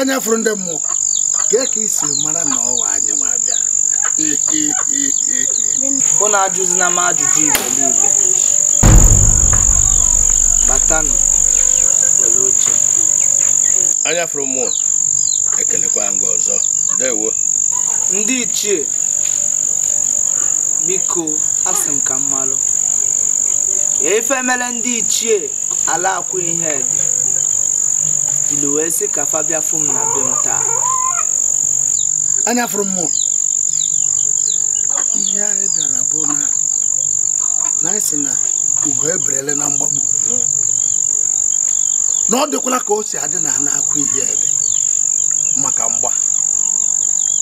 anya fụrụ ndị mmụọ kee ka isi mara na ọwa anyị ma bịa ajụzi na m ajụjụ igbo batanụ nwere oche anya fụrụ mmụọ ekelekwa nga ọzọ ndewo ndị ichie biko asị m ka mmalụ ife mere ndị ichie ala akwụ ihe dị Ilu wee ka fabia bịa na be m taa anya fụrụ m ihe anyị bịara bụ na na anyị si na ugo eberele na mgbagbu na ọ dịkwala ka o si adị na ana akwụ ihe ebe maka mgba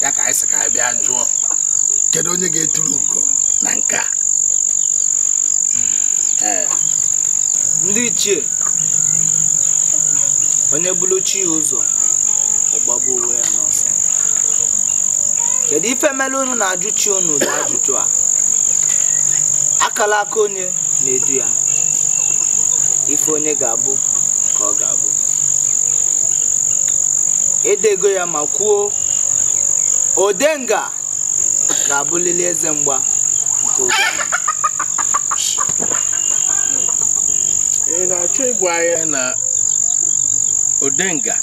ya ka anyị si ka anyị bịa jụọ onye ga-eturu ugo na nke a ndị ichie onye bụrụ chi ya ụzọ ọgbagbu onwe ya n'ọsọ kedu ife mere unu na-ajụ chi unu ụdị ajụjụ a akala aka onye na-edu ya ife onye ga-abụ ka ọ ga-abụ edego ya ma kwuo odenga ga-abụlili eze mgba nke oge odenga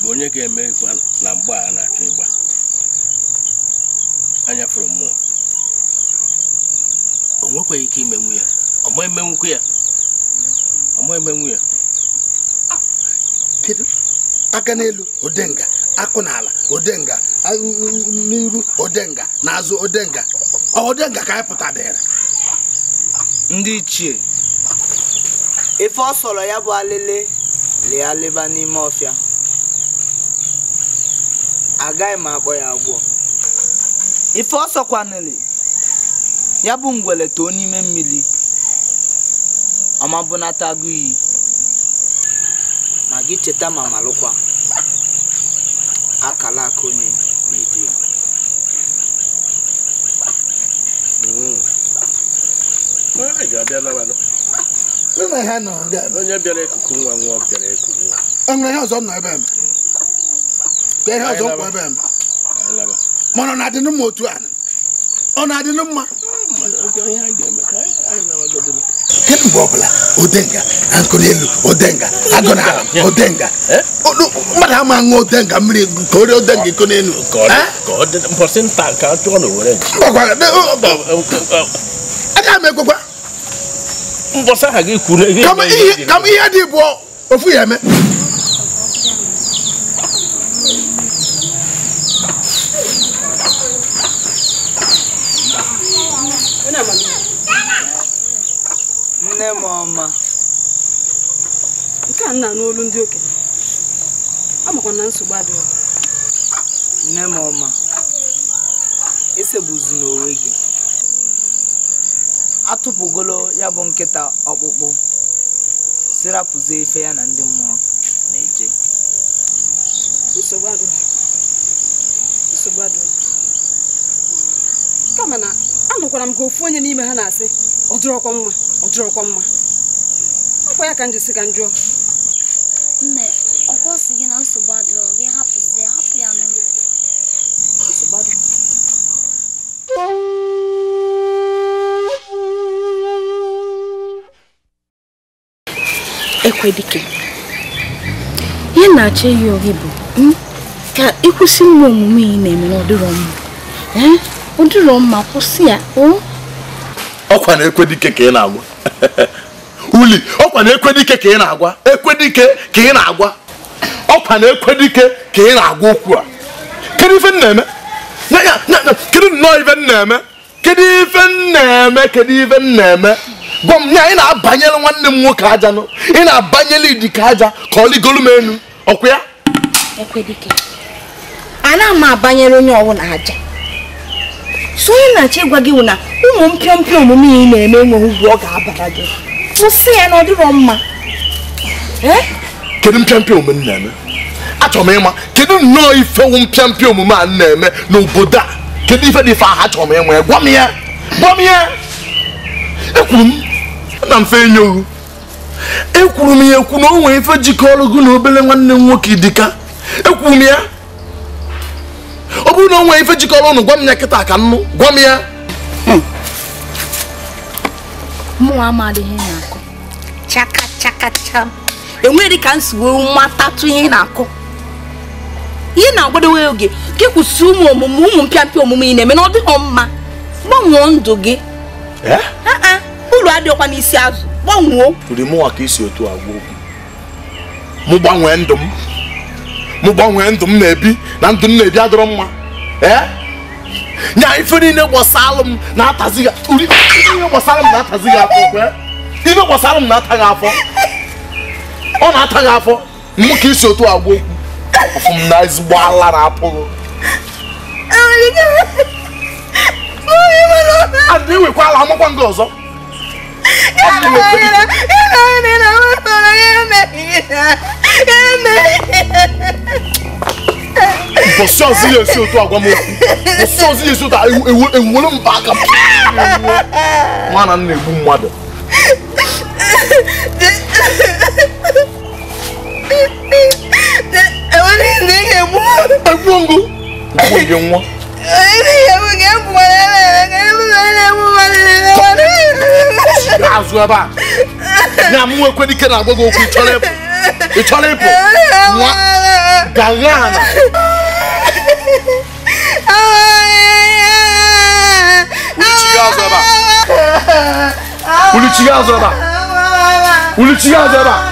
bụ onye ga-eme ịkwa na mgba a na-achọ ịgba anya fụrụ mmụọ o nwekwaghị ike imenwu ya ọma ya ya ah, kedu aka n'elu odenga akụ n'ala odenga n'iru odenga n'azụ odenga odenga ka anyị pụta dịrị ndị ichie ife ọ sọrọ ya bụ alele lie n'ime ọfịa agaghị m akpọ ya agwọ ife ọsọkwanili ya bụ ngwele too n'ime mmiri ọmabụnata agụ iyi ma gị cheta ma malụkwa akala aka onye na-edu ya Mm. Ah, này ne na ha nọ dị ebe onye bịara ekuku nwa nwa bịara ekuku nwa enwere ihe ọzọ nọ ebe m ka ihe ọzọ kwụ ebe m mana ọ na-adị mma otu a ọ na-adị mma kedu mgbe ọbụla odenga na nkụli elu odenga agụ na ala odenga mmadụ ama ṅụọ odenga mmiri ka o rie odenga iko n'elu mbọsị nta ka a chụọ na owere nchi aga m ekwekwa mbọsị ha gị kwuru ihe m ihe dị bụ ofu ya eme nne m ọma nke a nna n'olu ndị okenye amakwa na nsogbu adịghị nne m ọma atụpụgolo ya bụ nkịta ọkpụkpụ sirapụzie ife ya na ndị mmụọ na-eje nsogbu adịghị nsogbu adịghị kama na anụkwara m ka ofu onye n'ime ha na-asị ọdịrị dịrọkwa mma ọ mma ọkwa ya ka njisi ka njụọ nne ọkwa sị gị na nsogbu adịrọ gị hapụzie hapụ ya n'ụlọ nsogbu adịrọ ekwe dike ihe na-achọ eyi ohi bụ hmm, ka ịkwụsị nwa omume ị na-eme n'ọdịrọ mma eh, ọdịrọ mma kwụsị ya oh. ọkwa na ekwe dike ka ị na-agwa uli ọkwa na ekwe dike ka ị na-agwa ekwe dike ka ị na-agwa ọkwa na ekwe dike ka ị na-agwa okwu a kedu ife m na-eme kedu nnọọ ife m na-eme kedu ife m na-eme kedu ife m na-eme gwa m nye anyị na-abanyere nwanne m nwoke aja nọ ị na-abanyele idika aja ka ọ ligolu m elu ọkwa ya anaghị m abanyere onye ọbụla aja so onye na-achọ ịgwa gị wụ na ụmụ mpịọmpịọ omume ị na-eme nwere ugwu ọ ga-abara gị kwụsị ya na ọ dịrọ mma eh? kedu mpịampịa omume m na-eme achọrọ m ịma kedu nnọọ ifewu mpịampịa omume a na-eme n'obodo a kedu ife dị ife ahụ achọrọ m ịma ya gwa m ya gwa m ya ekwuru m ana m fe enye ohu ekwuru m ya ekwu na o nwere ife jikọrọ gị na obere nwanne m nwoke dịka ekwuru m ya ọ bụrụ na o nwere ife jikọrọ ụnụ gwa m ya kịta ka nnụ gwa m ya mụnwa amadịghị na-akụ chaka chaka cham enweghị ka m si wee matatụ ihe na-akụ ihe na-agbadowe oge ka kwụsị ụmụ omume ụmụ mpịampịa omume ị na-eme na ọ dịghị mma gbanwee ndụ gị eh? uru adịghịkwa n'isi azụ gbanwuo mụnwa ka isi otu agwa okwu mụ gbanwee ndụ m mụ gbanwee ndụ m na-ebi na ndụ m na-ebi adọrọ mma nya ife niile gbasalụ m na-atazi ihe gbasalụ m na-atazi gị afọ ife gbasalụ m na-ata gị afọ ọ na-ata gị afọ mụ ka isi otu agwa okwu ọfụ m na ezigbo ala na-apụghị adị ala, amakwa nga ọzọ bọ̀sán sí yẹn sí o tó àgbà mọ́ bọ̀sán sí yẹn sí o tó ewu ewu ló ń bá a kan. nwa na nna egbu mmadụ. enwere ihe na-egbu. egbu ngụ. egbu ngụ nwa. Azuaba. Na mu ekwe ni kena agogo ku cholepo. E cholepo. Mwa. Galana. Uluchiga azuaba. Uluchiga azuaba. Uluchiga azuaba.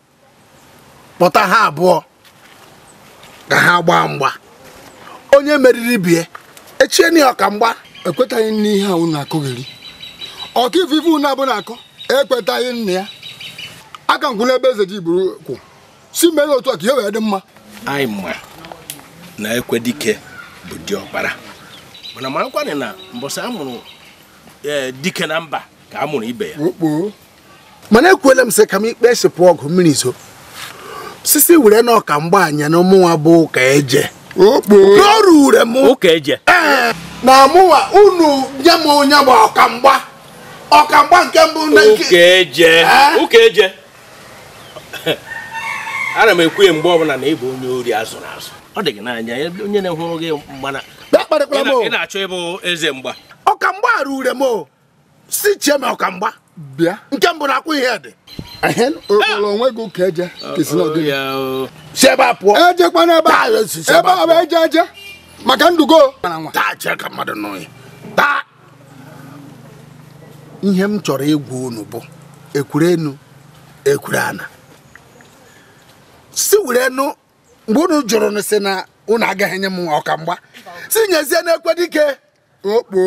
kpọta ha abụọ ka ha gbaa mgba onye meriri bie echieni ọka mgba ekwetaghị n'ihe a unu akụgheri ọka ifufe unu abụ na-akọ ekwetaghị nna ya aka nkwụla ebe eze ji buru kwụ si mere otu a ka ihe wee dị mma anyị ma na ekwe dike bụ diọkpara mana marakwanị na mbọsị amụrụ e, dike na mba ka a ibe ya mana ekwela m sị ka m ikpe esepụ ọgụ mmiri zo osisi were na ọka anya na mụnwa bụ ụka eje n'ọrụ ure m na mụnwa unu nye m onye bụ ọkamgba ọkamgba nke mbụ ụka eje ana m ekwu ya mgbe ọbụla na ị onye ori azụrụ azụ ọ dị gị n'anya onye na-ehụrụ gị mgbana ị na-achọ ịbụ eze mgba ọkamgba rure m si chie m ọkamgba bịa nke mbụ na akwụ ihe dị onwe gị ụka eje oh, oh. si ebe a pụọ ejekwana ebe a bụ eje eje maka ndugo ihe m chọrọ ịgwa unu bụ ekwure ekwurana. ekwure ana si were mgbe unu jụrụ na si na unu agaghị enye m ọka mgba si nyezie na ekwe dike okpo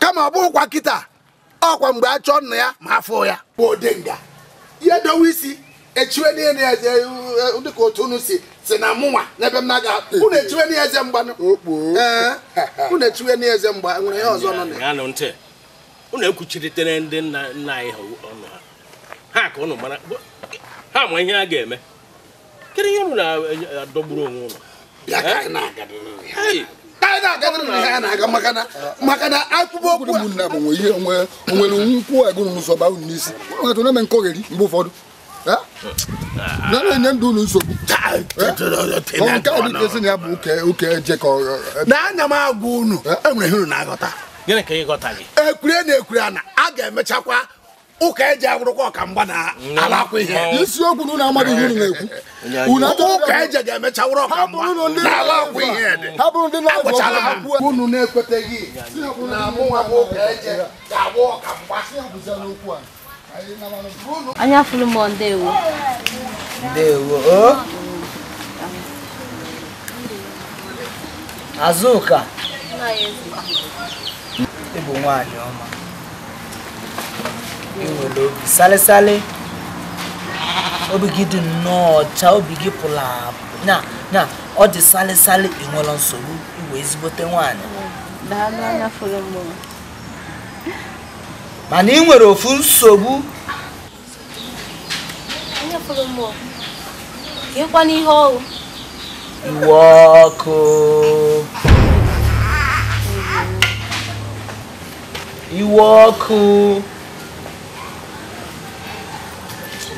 kama ọ bụrụkwa kịta ọkwa mgbe a chọọ nna ya ma afọ ya bụ odenga ya dowe isi echiwe n'elu eze eh, dịka otu unu si si na mụnwa n'ebe m na-aga eh. unu echiwe n'eze mgbanụ eh, unu echiwe n'eze mgba nwere ihe ọzọ nọ na ya unu ekwuchiritere ndị nna nna anyị ha ọnụ ha ha ka unu mara ha ma ihe a ga-eme kedu ihe unu na-adọgburu onwe unu anyị na-aga ha na-aga maka na akpụkpọ ụkwụ eh, eh. na bụ ihe nwere nkwụ agụrụ n'ụzọ ba unu n'isi nwetụ na-eme nkọgheri mgbe ụfọdụ na na-enye ndụ unu nsogbu nke ọ dịka esi na ya bụ oke jekọ na-anya m agwa unu enwere ihe unu na-aghọta na ana a ga-emechakwa ụka eji agwụrụkwa ọka mgba na alakwa ihe isiokwu na unu amaghị ihe unu na-ekwu ụka eji ga-emecha wụrụ ọka mgba na ihe dị agwụchala ha unu na-ekweteghị na mụnwa bụ ụka eji ga-agwụ ọka mgba anya fụrụ m ndewo ndewo azụka ịbụ nwaanyị ọma nwere obi salịsalị obi gị dị nnọọ ọcha obi gị pụrụ na na ọ dị salịsalị ịnwere nsogbu iwe ezigbote nwaanyị mana ị nwere ofu nsogbu iwe ọkụ iwe ọkụ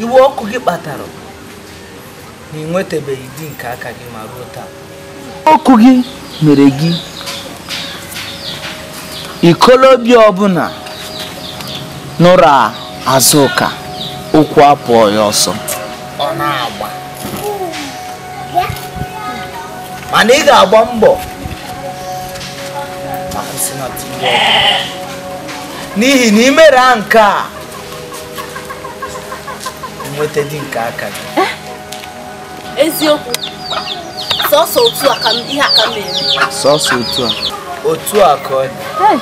iwe ọkụ gị kpatara na ị nwetabeghị di nke aka gị ma ruo taa ọkụ gị mere gị ikolobia ọbụla nụrụ azụka ụkwụ apụọ ya ọsọ mana ị ga-agba mbọ n'ihi na imere a nke a nweta di nke aka gị eh? eziokwu sọsọ otu a ka ihe aka mere sọsọ otu a otu a ka ọ dị eh,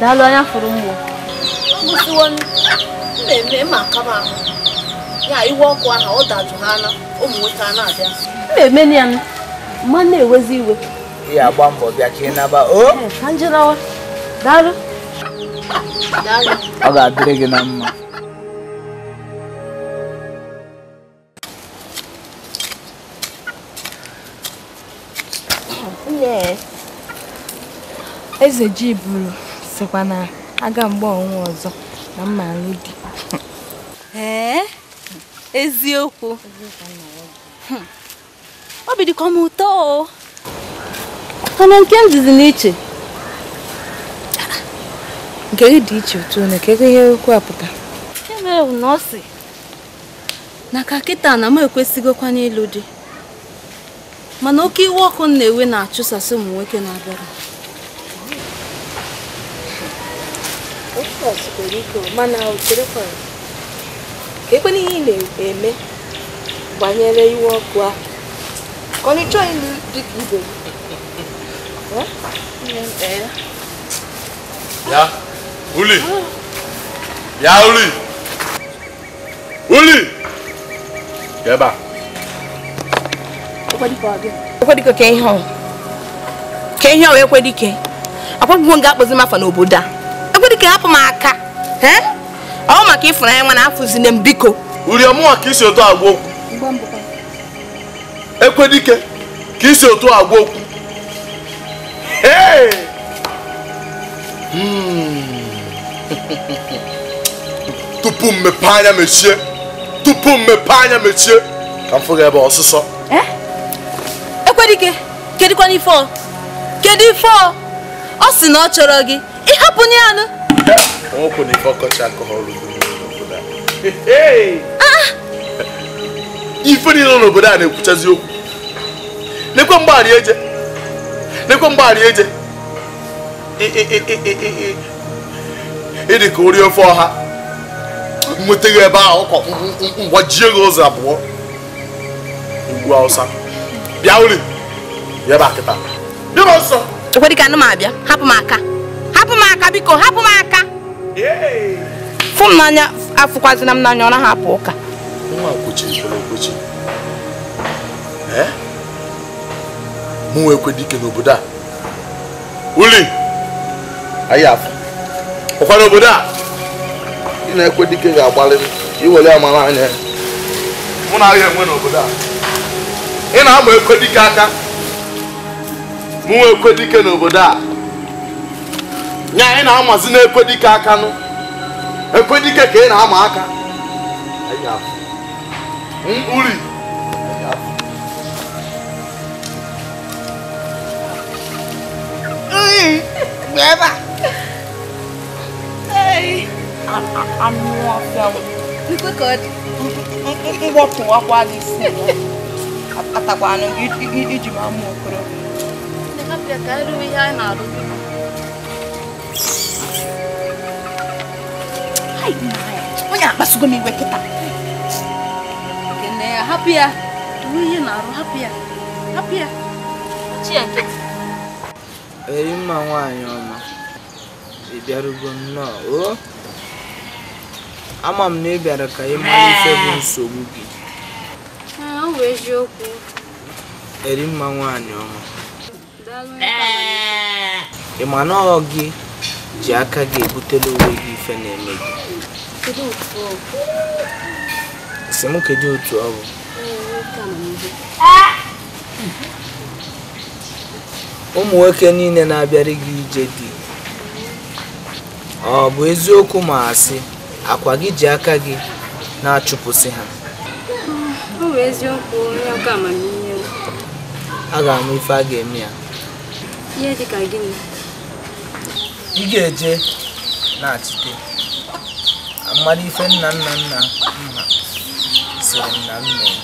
daalụ anya fụrụ mgbo mgbụsiwo mmemme ma akaba ahụ ya iwe ọkụ ahụ ọ dajụ ha ala ụmụ nwoke a na-abịa m na-eme mmemme ya m ma na-ewezi iwe ị agba mbọ bịa ka ị naba eh, ka njirawa daalụ ọ ga-adịrị gị na mma Eze ji buru sikwa na aga mgbe ọnwa ọzọ na mma di. Ee, eziokwu. Obi hmm. dịkwa m ụtọ o. Mana nke m dịzi n'iche. Nke gị dị iche otu na ka ihe okwu apụta. Emere m na ọ sị na ka kịta na m ekwesịghịkwa n'ịlụ di. mana oke iwe ọkụ m na-ewe na-achụsasị ụmụ nwoke na-abịara ekwe ihe ị na-eme banyere iwe ọkụ ahụ ka ọ chọọ ịlụ dịka ibe ya uli ya uli uli ebe É eu ekwe ka ihe ka ihe ọwa ekwe dike akwụkwọ nga É m afa n'obodo a ekwe dike hapụ m aka ọ maka ịfụrụ anya nwa na afụzine m biko uriọmụnwa ka isi otu Que okwu ekwe dike ka isi otu tu okwu ee tupu mmepe anya mechie tupu mmepe anya mechie ka m fụga ebe ọsụsọ Ekwerike kedụkwana ife ọ kedu ife ọ ọ sị na ọ chọrọ gị ịhapụ nye anụ ife niile n'obodo a na-ekwuchazi okwu nekwe mgbaghara eje nekwe mgbaghara eje ịdị ka ori ofe ọha nwetaghị ebe ahụ ụkọ mgbajie gị ụzọ abụọ ugbu awụsa bịa uri bịa ebe a kịta bịa m nsọ ekwedị ka anụ m abịa hapụ m aka hapụ m aka biko hapụ m aka fụ m n'anya afụkwazina m n'anya ọ naghị apụ ụka nwa kwuchiri kwere okwechi mụ ekwe dike n'obodo a uli anyị afọ ụfọdụ obodo a ị na-ekwe dike ga-agbalị iwere amara anya mụ na ahịa enwe n'obodo a ị na-ama ekwe ka aka mụnwe ekwe n'obodo a nya ị na-amazi na ekwe ka aka nụ ekwe dị ka ị na-ama aka uri Beba! atakwanụ gị iji ma mma okorobịa onye akpasugo m iwe kịta na-arụ mma nwaanyị ọma ị bịarugo nnọọ o ama m na ị bịara ka ị mara ife bụ nsogbu gị bụ eziokwu eri mma nwaanyị ọma ị ma na ọ gị ji aka gị ebutela onwe gị ife na-eme gị si m kedu otu ọ bụ ụmụ nwoke niile na-abịara gị ije dị ọ bụ eziokwu ma asị akwa gị ji aka gị na-achụpụsị ha ọ bụ eziokwu onye ọka amamihe a ga amụ ife a ga-eme ya ihe dị ka gịnị ị ga-eje na-achite mmadụ ife nna nna nna nna sịrị nna nna ya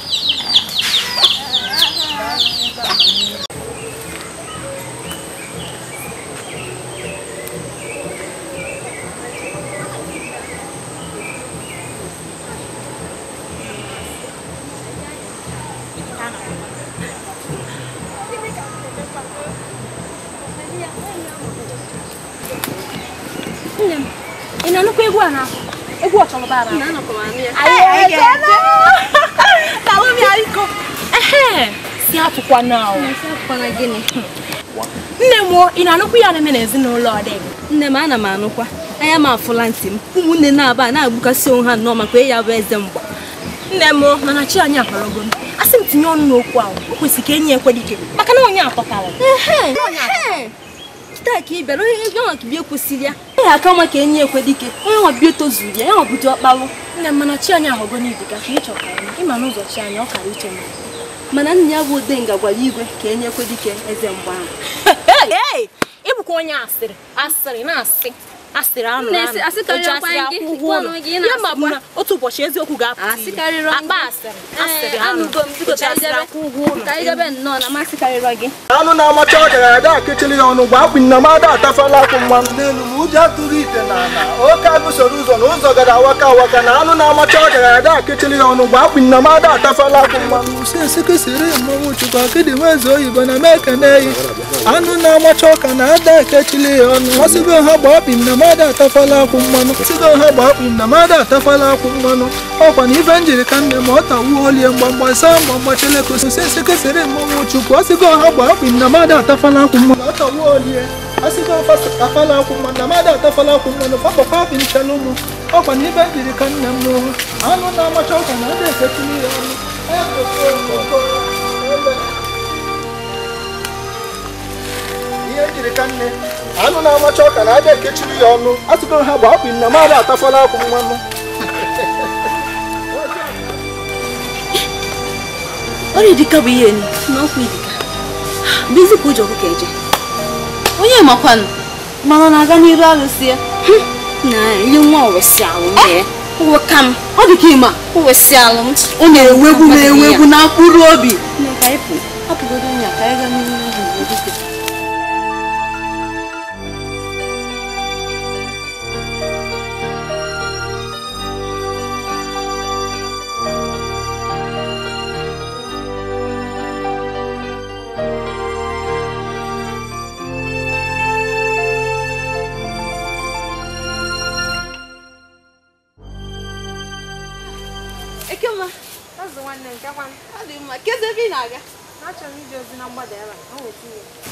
barabara. Salumi haiko. Ehe, si hatukwa nao. Si hatukwa Nne m ị na-anụkwa ihe aneme n'ezinụlọ dị? Nne m ana m anụkwa. Anya m afụla ntị m. Ụmụnne na-aba na-agbukasị onwe ha nnọọ maka ya bụ eze mgba. Nne m mana chi anyị akọrọgo m. Asị m tinye ọnụ n'okwu ahụ. O kwesịrị ka enyi ekwe dike maka na onye akpọtara. ka ị bịara onye ego ahụ ka bịa kwụsịrị ya. naghị aka nwa ka enye ekwe dike onye nwabi tozuru ya ya nwabudu ọkpalụ nne mana chi anyị ahụgo n'ibiga ka ị chọkara ịma n'ụzọ chi anyị ọ kara uche mana nna ya bụ odenga gwara igwe ka enye ekwe dike eze mgbe ahụ ịbụkwa onye asịrị asịrị na-asị asịrị anụ anụ ya ma bụ na otu ụbọchị eziokwu ga-apụta akpa asịrị anụ anụ na-amacha ya ọnụ akpụ nna m ada atafala akwụ mma n'elu ma ụjọ ite oke ụzọ na ụzọ gara awaka awaka na anụ na-amacha ọ gara ya ọnụ akpụ nna m ada atafala akwụ mma usesekesịrị mmanwụ chukwu akịdị oyibo na mee anụ na-amacha ọka na ada ya ọnụ ọsịbe ha gba ọbi nna mada atafala akwụ mmanụ site ha gba akpụ m na mada atafala akwụ mmanụ ọkwa na ife njiri ka nne ma ọ tawuo olie mgbamgba saa mgbamgba chelekososi esekesere mmanwụ chukwu ọsịgo ha gba akpụ m na mada atafala akwụ mmanụ ọ tawuo olie asịgo afala akwụ mmanụ na mada atafala akwụ mmanụ papapa apị nchala ụmụ ọkwa na ife njiri ka nne m n'ụwa anụ na-amacha ọkwa na ada efetụrụ ya ọnụ ihe njiri ka nne anụ na-amacha ọka na aja ekechiri ya ọnụ asụgo ha bụ akpụ na mmadụ atafala akwụ mmanụ ọrịa bụ ihe na ọkwa idika bụ ụjọ ọkụkọ eje onye makwanụ mana na-aga n'iru arụsị ya na nwa ọrụsị alụ ụka m ọ alụ m na na obi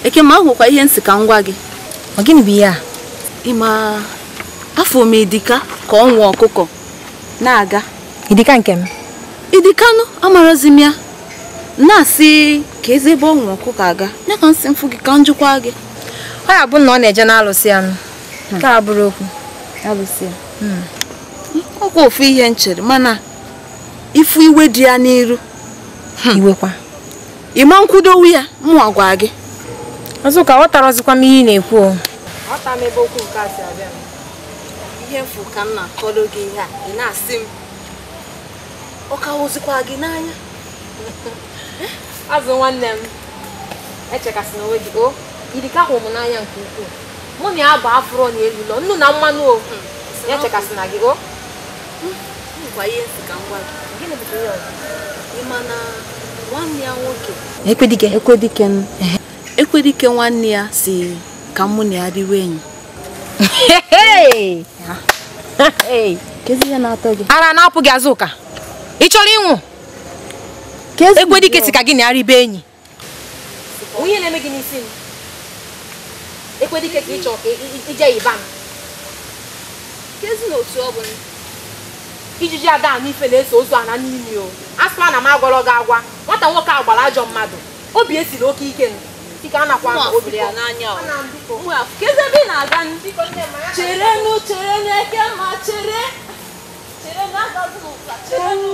eke ma ahụkwa ihe nsị ka ngwa gị ọ gịnị bụ ihe a ị ma afọ m idika ka ọ ọkụkọ na-aga idika nke m idikanụ amarazi m ya na-asị ka eze ebe ọ ọkụkọ aga ya ka nsị mfụ gị ka njụkwa gị ọ ya bụ na ọ na-eje na-alụsị anụ hmm. ka bụrụ okwu hmm. ọkwa ofu ihe nchere mana ifu iwe dị ya n'iru hmm. iwekwa ịma nkwudowu ya mụọ gwa gị Azụka ghọtara ọzịkwa m ihe ị na-ekwu m ebe okwu nke a si abịa ihe mfu ka m na gị na-asị m ọ ka gị n'anya azụ nwanne m echekasị na onwe gị o irika ahụ m n'anya nke ukwuu mụ na ya bụ afụrọ na nnu na mmanụ o hmm. echekasị na gị o ekwedike ekwedike Ekwerike nwanne ya si ka mụ na ya riwe enyi ara na-apụ gị azụ ụka ị chọrọ ịnwụ Ekwerike si ka gị na ya ribe enyi onye na-eme gị n'isi m Ekwerike ka ịchọ ka ije yiba m kezi na otu ọ bụ ijiji ada n'ife na-eso ozu ana n'imi o asịkwa na m agwọrọ gị agwa nwata nwoke a gbara ajọ mmadụ obi esiri oke ike nụ ebe a na-aga cherenụ cherenụ n'eke ma chere cherenụ agaghị ụka cherenụ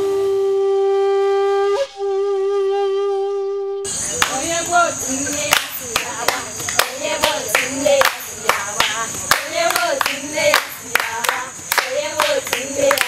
Yeah.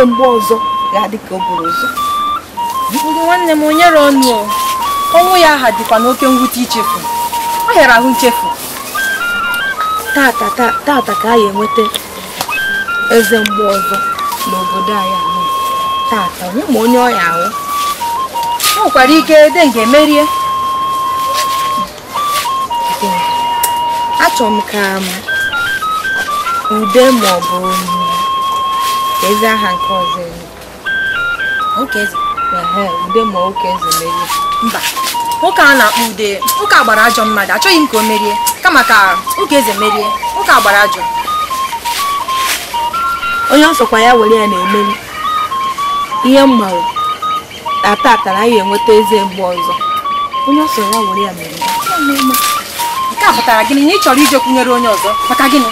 ruo mgbe ọzọ ga-adị ka o buru ụzọ nwanne m onye re ọnụ ọnwụ ya aha dịkwa n'oke mwute ichefu ọ hịara ahụ nchefu tata ka a enweta eze mgbe ọzọ n'obodo anyị tata onye ma onye ọya ahụ o nwekwara ike ede nga emerie achọrọ m ka ude ma ọ bụ ezi aha nke ọzọ ude ma nwoke eze merie mba nwoke a na-akpọ ude nwoke a gbara ajọ mmadụ achọghị m ka o merie kama ka nwoke eze merie nwoke a gbara ajọ onye nsọkwa ya were ya na-emeri ihe mmanwụ na tata na anyị enweta eze mgbe ọzọ onye ọsọ ya were ya mere nke a pụtara gịnị na ị chọrọ ije kwunyere onye ọzọ maka gịnị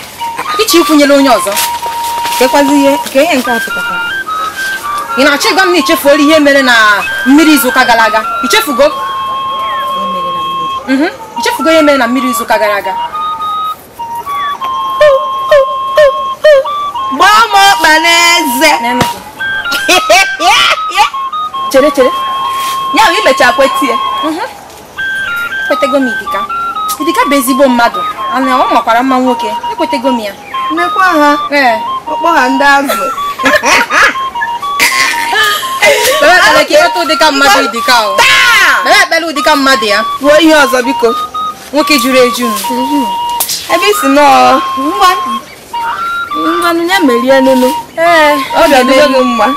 ịchọ ịkwụnyere onye ọzọ kekwazi ihe ka ihe nke a pụtara ị na-achọ ịgwa m na ichefuola ihe mere na mmiri izuụka gara aga ichefugo ichefugo mhm. ihe mere na mmiri izuụka gara aga gbaa m ọkpa n'eze chere chere ya bụ imecha kwetie mhm. ekwetego m idika idika bụ ezigbo mmadụ ana ọ makwara mma nwoke ekwetego m ya mmekwa ha ee ọkpọ ha ndị azụ ekpele ụdịka mmadụ ya ruo ihe ọzọ biko nwoke juru eju mhm. ebe isi nọọ ngwanụ ya merie nụnụ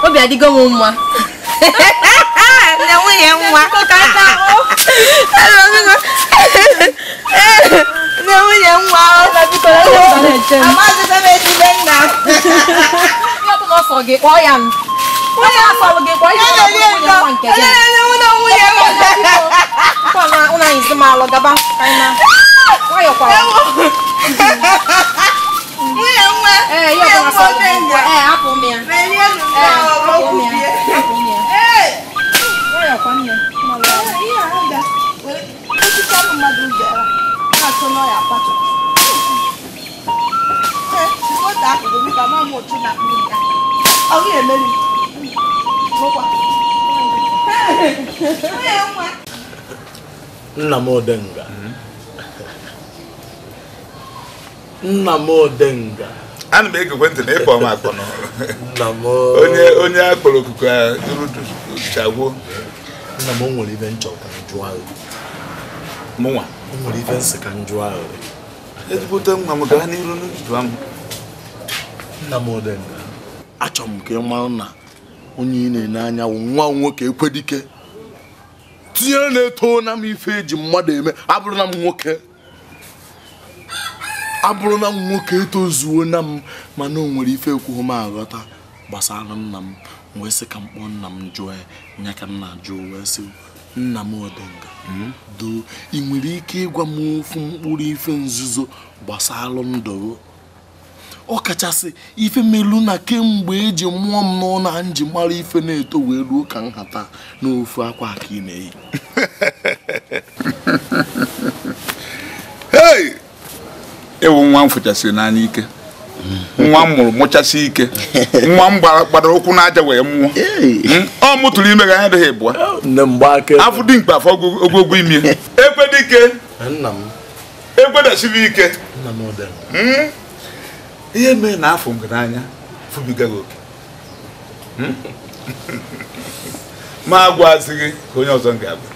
obi adịgo m mma na nwunye nwa oh. nne nwunye nwa amazịbe m ejide nna onye na ọ ya akpatu akụkụ dị ka na akpụ ya ọ gị emeri nna m odenga nna m odenga ana m egekwe ntị na ịkpọ m akpọ n'ọrụ onye akpọrọ okuku a nna m o nwere ibe nchọ ka ahụ. mụnwa o nwere ife nsị ka njụ ahụ ezigbote nwa m gaa n'iru n'udu ahụ nna m odenga achọrọ m ka ị mara na onye ị na-enye anya nwa nwoke ekwedike tinye na-eto na m ife eji mmadụ eme abụrụ na m nwoke abụrụ na m nwoke etozuo na m mana o nwere ife ekwughị m aghọta gbasara nna m wee sị ka m kpọọ nna m jụọ ya nya ka m na-ajụ wee sị nna Nnamdịnga do ị nwere ike ịgwa m ofu mkpụrụ ife nzuzo gbasara ndụ ọ kachasị ife melu na kemgbe eji mụọ m n'ụlọ na nji mara ife na-eto wee ruo ka nhata n'ofu akwa ka ị na-eyi ewu nwa m fụchasịrị n'anya ike nwa m mụrụ mụchasị ike nwa m gbadara ụkwụ n'aja wee mụọ hmm? ọ mụtụrụ ime ga anya dịghị bụa afọ dị mkpa afọ ogwogwo imi ekwe dike ekwedachiri ike ihe mee na afọ ngaranya fụbigaghị oke hmm? ma agwazi gị ka onye ọzọ ga-agwa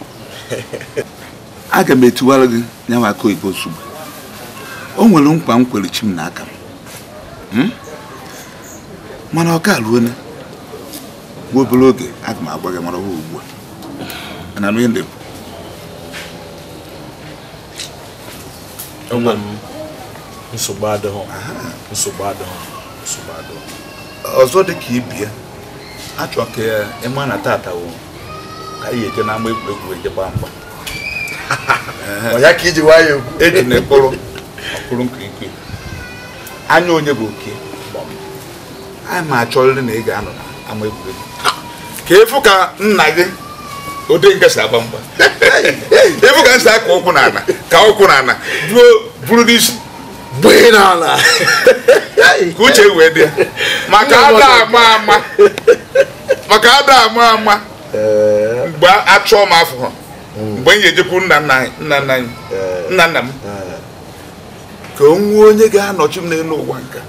aga m etiwara gị nyanwa aka oyibo ozugbo o nwere nkwa m kwere chi m n'aka m Hmm? mana ọ ka ruo nwa obere oge aga m agwa gị mara ha ugbu a na nri ndị nsogbu ọzọ dị ka ibie achọ ka ịma na tata wụ ka anyị eje n'ama egwuregwu eje ha mgba ọ ya ka iji nwayọọ egwu eji na ekpụrụ ọkpụrụ nkirikiri anya onye bụ oke anyị ma achọ achọrịrị na ị ga-anọ ama egwuregwu ka efu ka nna gị ode nke si agba mgba efu ka nsi aka ụkwụ n'ala ka ụkwụ n'ala ruo buru n'isi gbee n'ala ka uche wee dị ya maka ada ama ama maka ada ama ama mgbe achọọ m afọ mgbe m ga-ejekwu nna nna anyị nna nna m ka o nwee onye ga-anọchi m n'elu ụwa nka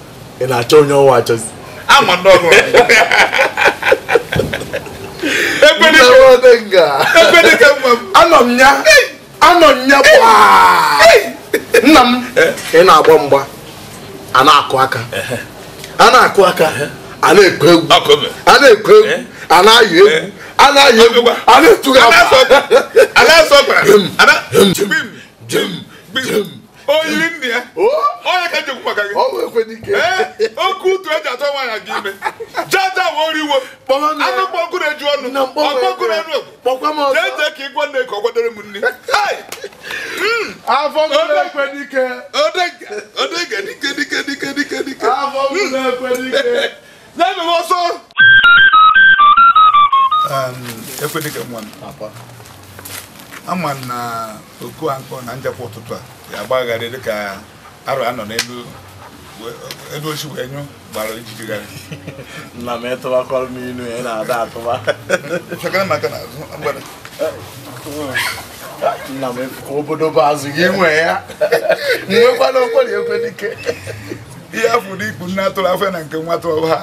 ị na-achọ onye ọwa achọzi anọ m ya anọ m ya nna m ị na-agba mgba a na-akụ aka a na-akụ aka a na-ekwe egwu a na-ekwe egwu a na-ayọ egwu a na-ayọ egwu a na-etugha A A na-asọ na-asọ o yiri nne oh! ya ọnya ka njekwu maka gị ee eh, oke utu eji atọ nwaanyị gị ime jaja woriwo anụ mkpọnkụ eju ọnụ ọkpọnkụ enu okwu ka ịgwa nne ka ọ kwadoro m hmm. afọ dike afọ hmm. um, ama na oku ankọ na ụtụtụ a ga dịka arọ anọ n'elu elu ochi wee nyụ gbara ijijigharị nna m ịtụbakọrọ m inu ya na-ada atụba chekara maka na azụ agbara nna m ka obodo bụ azụ gị nwee ya nwekwana okwere ekwe dike ihe afọ ụdị ikpu nne atụrụ afọ na nke nwa atụrụ ha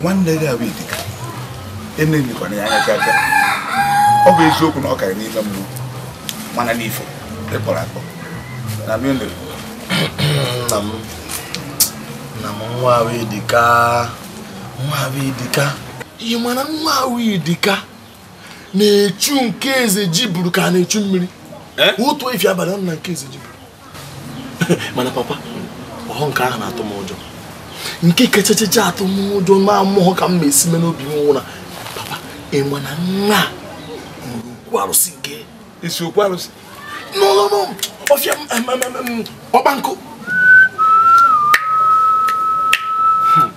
nwanne gị abụ idika emebikwana ya anya gaga ọ bụ eziokwu na ọ karịrị n'ime mmụọ mana n'ifo ịkpọrọ akpọ na mmiri nna m nna m nwa ahụ ịdịka nwa ahụ ịdịka ị mana nwa ahụ ịdịka na-echu nke eze ji ka a na-echu mmiri eh? otu efi abalị ọ na nke eze ji mana papa ọhụ nke ahụ na-atụ m ụjọ nke kachachacha atụ m ụjọ ma mmụọ ka m ma esi me n'obi m nwụra ịma na nwa okwu arụsị nke esi okwu arụsị n'ụlọ ọfịa ọkpa hmm.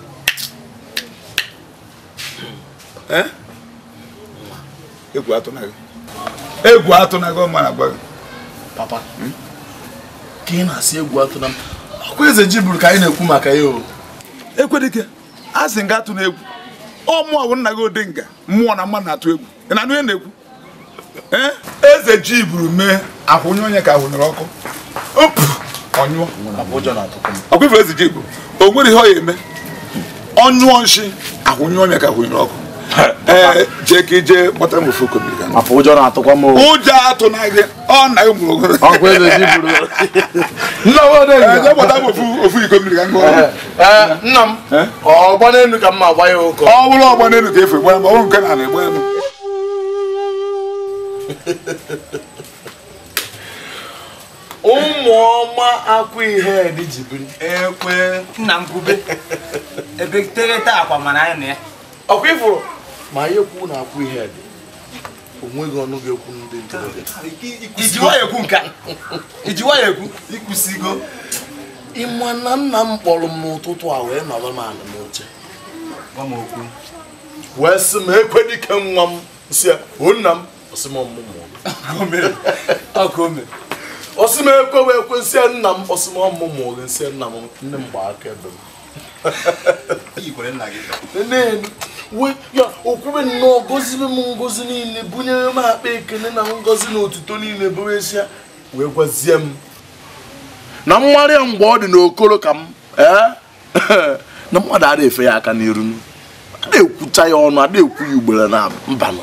eh? egwu atụ na egwu gị ọma na-agba gị papa hmm? ka ị na-asị egwu atụna m ọkwa eze ji bụrụ ka anyị na-ekwu maka ya o ekwedike a sị nga atụ na egwu ọ mụọ bụ nna gị Odenga mmụọ na mma na-atụ egwu ị na-anụ ihe na-ekwu eze ji buru mee ahụnye onye ka ahụnyere ọkụ ọkụ ifere eze ji bụ o nwere ihe ọ ya eme ọnyụọ nshi onye ka ahụnyere ọkụ ee eh, jee ka ije kpọta m ofu kobiga afọ ụjọ na-atụkwa m ụjọ na gị ọ na ụmụ ogoro ọkwa eze ji buru eh, jee kpọta m ofu ofu iko mmiri ka ọrụ. gụọ eh, nna m ọgba n'elu ka mma agba ya ụkọ ọ bụrụ ọgba n'elu ka efu gbara m ọ bụrụ nke na egbe m ụmụ ọma akwa ihe dị ji ekwe nna m bube ebe tereta akwa mara anya na ya ọkwa ifuru ma ihe kwu na-akwụ ihe dị onweghị ọnụ ga-ekwu ndị ntorobịa iji nwayọ ekwu ịkwụsịgo ịma na nna m kpọrọ m n'ụtụtụ a wee nọrọ m ala n'oche wee sị m ekwe dike nwa m si o nna m osi m ekwe wee kwe nsị nna m osi m ọmụmụ gị nsị nna m ndị m gba aka ebe m ya okwube nnọọ gozibe m ngozi niile bunyere m akpa ekele na ngozi na otuto niile bụrụ esi wee gwazie m na mmarị ya mgbe ọ dị n'okoro ka m eh, na mmadụ ada efe ya aka n'iru ada ekwucha ya ọnụ ada ekwu ya ugboro na mbanụ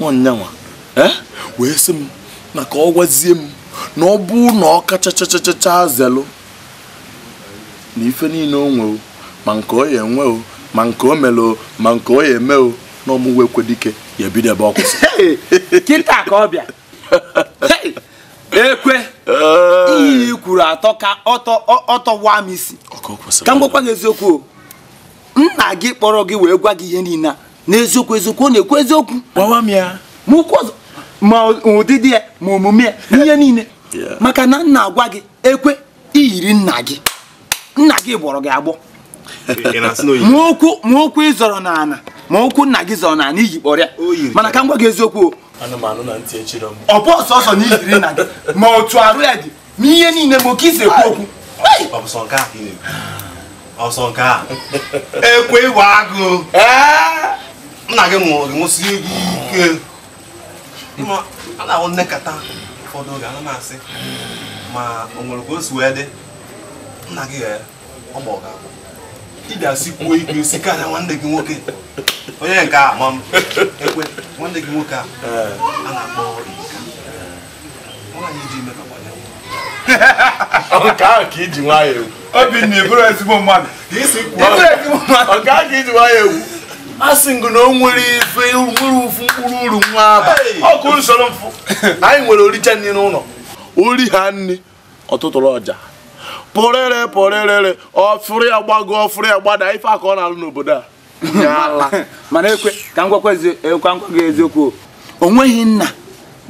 nwanyanwa eh, wee sị m na ka ọ gwazie m na ọ bụ na ọ kachachachacha zelụ na ife niile o ma nke ọ ya enwe o ma nke o melo ma nke o ya eme o na ọmụwe ekwe dike ya ebido ebe ọ kịta ka ọ bịa ekwe ihe kwuru atọ ka ọtọwa m isi ka m gwakwa gị eziokwu o nna gị kpọrọ gị wee gwa gị ihe niile n'eziokwu eziokwu ọ na-ekwu eziokwu gwawa m ya ma ụdịdị ya ma omume ya n'ihe niile maka na nna agwa gị ekwe iyiri nna gị nna gị gbọrọ gị agbọ ma okwu ma ị zọrọ n'ala ma okwu nna gị zọrọ n'ala iji kpọrịa mana ka m gwa gị eziokwu ọ bụ ọsọ ọsọ na ijiri na gị ma otu arụ ya dị ma ihe niile ma oke isi ekwu okwu ọsọ nke a ekwe ịwa agụ nna gị mụrụ nwụsị gị ike a na-ahụ nnekata ụfọdụ oge ana m asị ma o nwere ka o si wee dị nna gị ọgbọ ga-abụ ị ga-asịkwuo igwe si karịa nwanne gị nwoke onye nke a ma m ekwe nwanne gị nwoke a a na-akpọ ka iji nwa ya obinna ịbụrụ ezigbo mmadụ ka iji nwa ya egwu asị ngụ na o nwere ife nwere ụfụ mkpụrụ uru nwa aba ọkụ nsoro mfụ anyị nwere oricha nri n'ụlọ ori ha nri ọtụtụrụ ọja pụrịrị pụrịrịrị ọfụrụ ya gbago ọfụrụ ya gbada ife aka ọ na-alụ n'obodo a mana ekwe ka nkwakwa eh, gị eziokwu o nweghị nna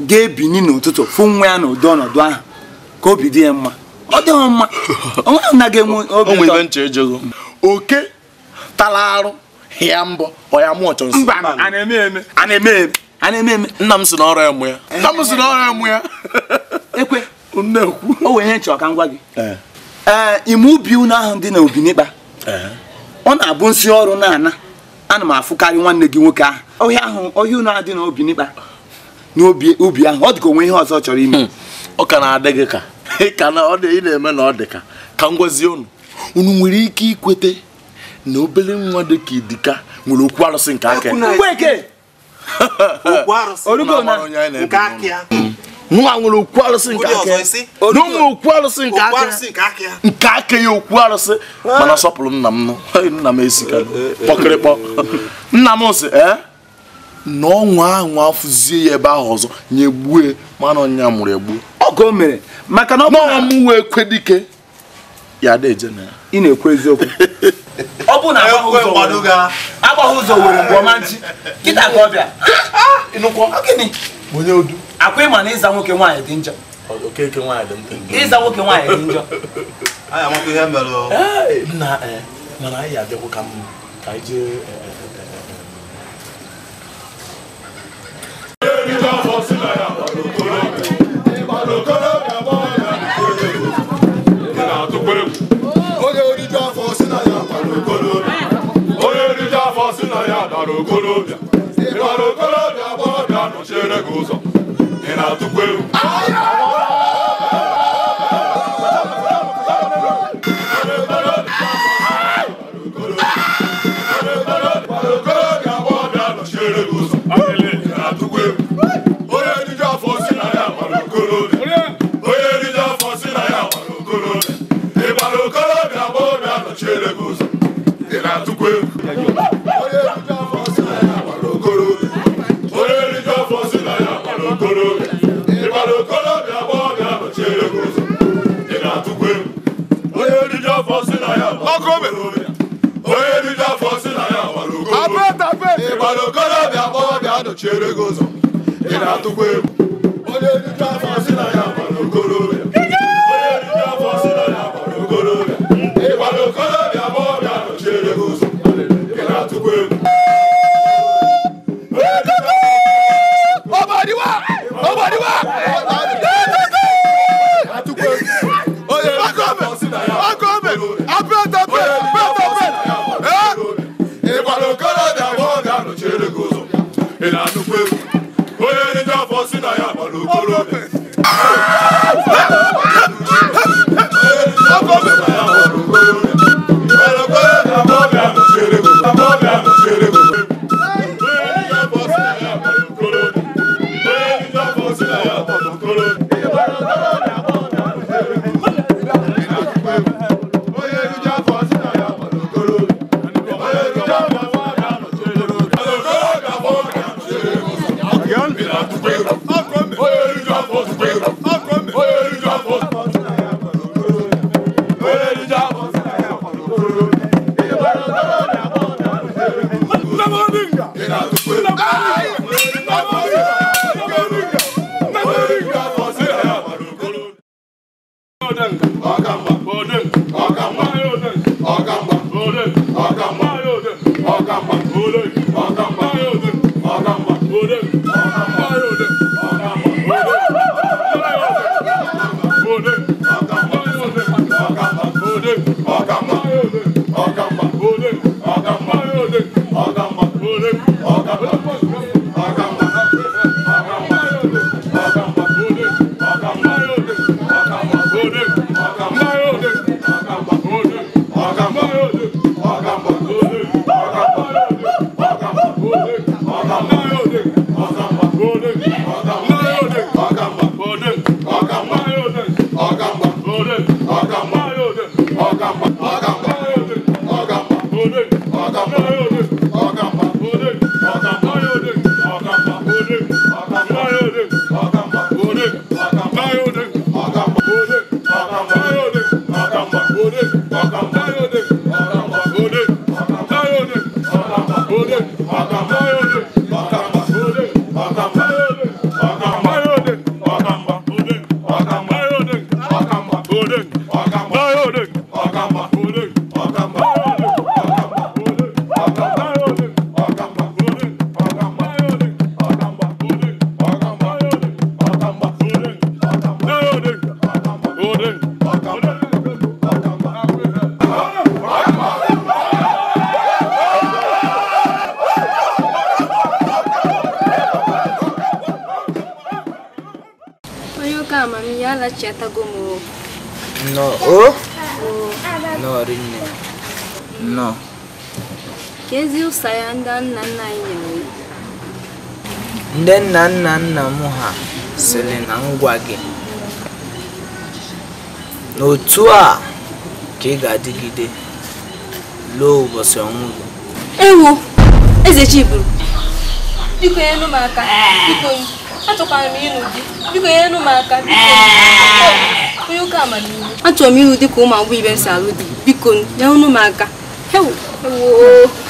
ga-ebini n'ụtụtụ fụ nwa ya n'ụdị ọnọdụ ahụ ka obi dị ya mma ọ dị mma onweghị nna ga-enwe obi oge oke tara arụ ya mbọ ọya mụ ọchọ nsọ a na-eme eme a na-eme eme nna m si n'ọrụ ya mụ ya nna m si n'ọrụ ya mụ ya ekwe o wee nye nchọ ka m gị ee ime ubi unu ahụ dị na obinigba ọ na-abụ nsị ọrụ na-ana ana m afụkarị nwanne gị nwoke ahụ ọhịa ahụ ọhịa unu ahụ dị na obinigba na ubi ahụ ọ dị ka onwe ihe ọzọ chọrọ ime hmm. ọ ka na-adị gị ka ka na ọ dị ị na-eme na ọ dị ka ka m gwazie unu unu nwere ike ikwete na obere nwa dị ka idika nwere okwu arụsị nke aka nwa nwere okwu arụsị nke aka na ụmụ okwu arụsị nke aka ya nke aka ya okwu arụsị ah. mana sọpụrụ nna m nna m esika kpọkịrịkpọ eh, eh, eh. nna m sị ee na ọnwa ahụ afụzie ya ebe ahụ ọzọ nyegbue mana ọnya mụrụ egbu ọgọ mere maka na ọ bụ na ọmụ wee kwe ya ada eje na ya ị na-ekwu eziokwu ọ bụ na agbaghị ụzọ were mgbe ọma nchi kịta ka ọ bịa ah, akwa ịma na ịza nwoke nwaanyị dị njọ ịza nwoke nwaanyị dị njọ eh, mana anyị abịakwu ka mma ka anyị jee Thank eh, you. Eh, onye riju afọ si na ya dara okolobịa ị gbara okolobịa gbọrọbịa nọchiere gị ụzọ ị na-atụkwa egwu ịkwado okorobịa kpọọbịa nọchiere gị ụzọ ị na-atụkwa egwu onye nna nna anyị nyere iwu ndị nna nna nna m ha sịrị na ngwa gị n'otu a ka ị ga-adịgide lụọ ụbọchị ọnwụ gị ewu eze chiburu biko nyelu m aka biko achọkwara m ịlụ di biko nyelu m aka biko onye ụka amamihe achọrọ m ịlụ di ka ụmụ agbọghọ ibe m si alụ di biko nyelu m aka ewu.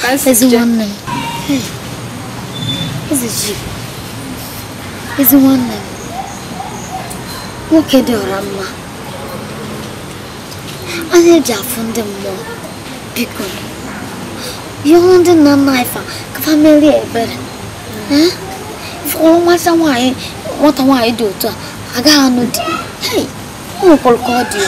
ka m ji ezi nwanne m nwoke dị ọra mma anya eji afụ ndị mmụọ biko ihe ọrụ ndị nna nna ife ka famili ebere ịfọrọ nwata nwaanyị nwata nwaanyị dị otu a agaghị anụ di ọ nwekwara ka ọ dị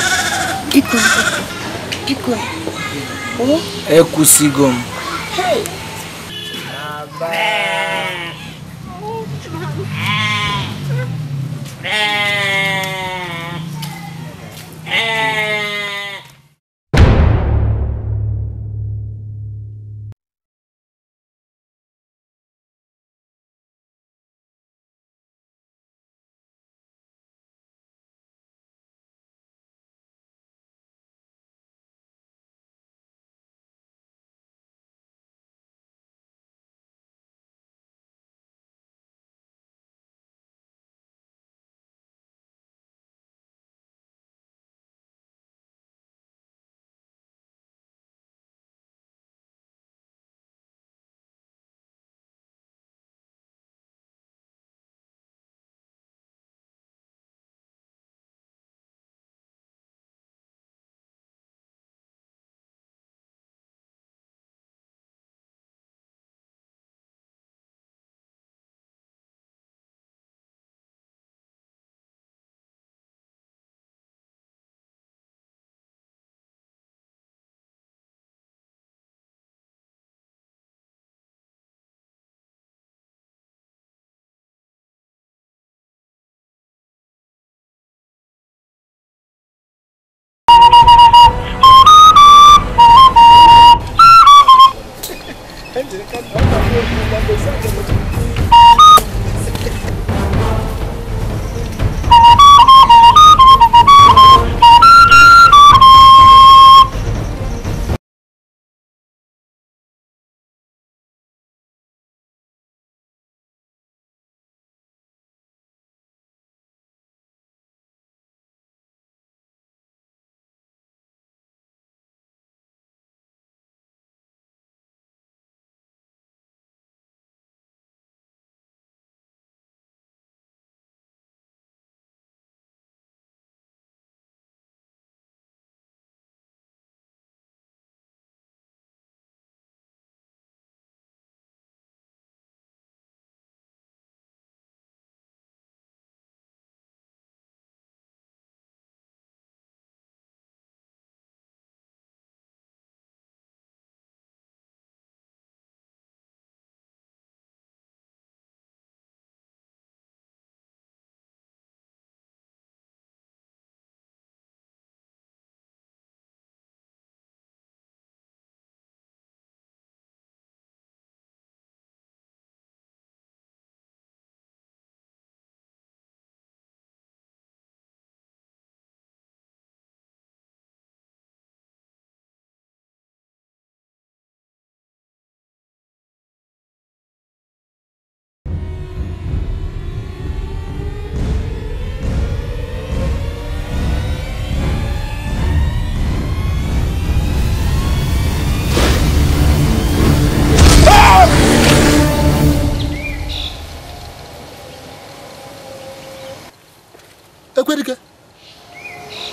Tá que?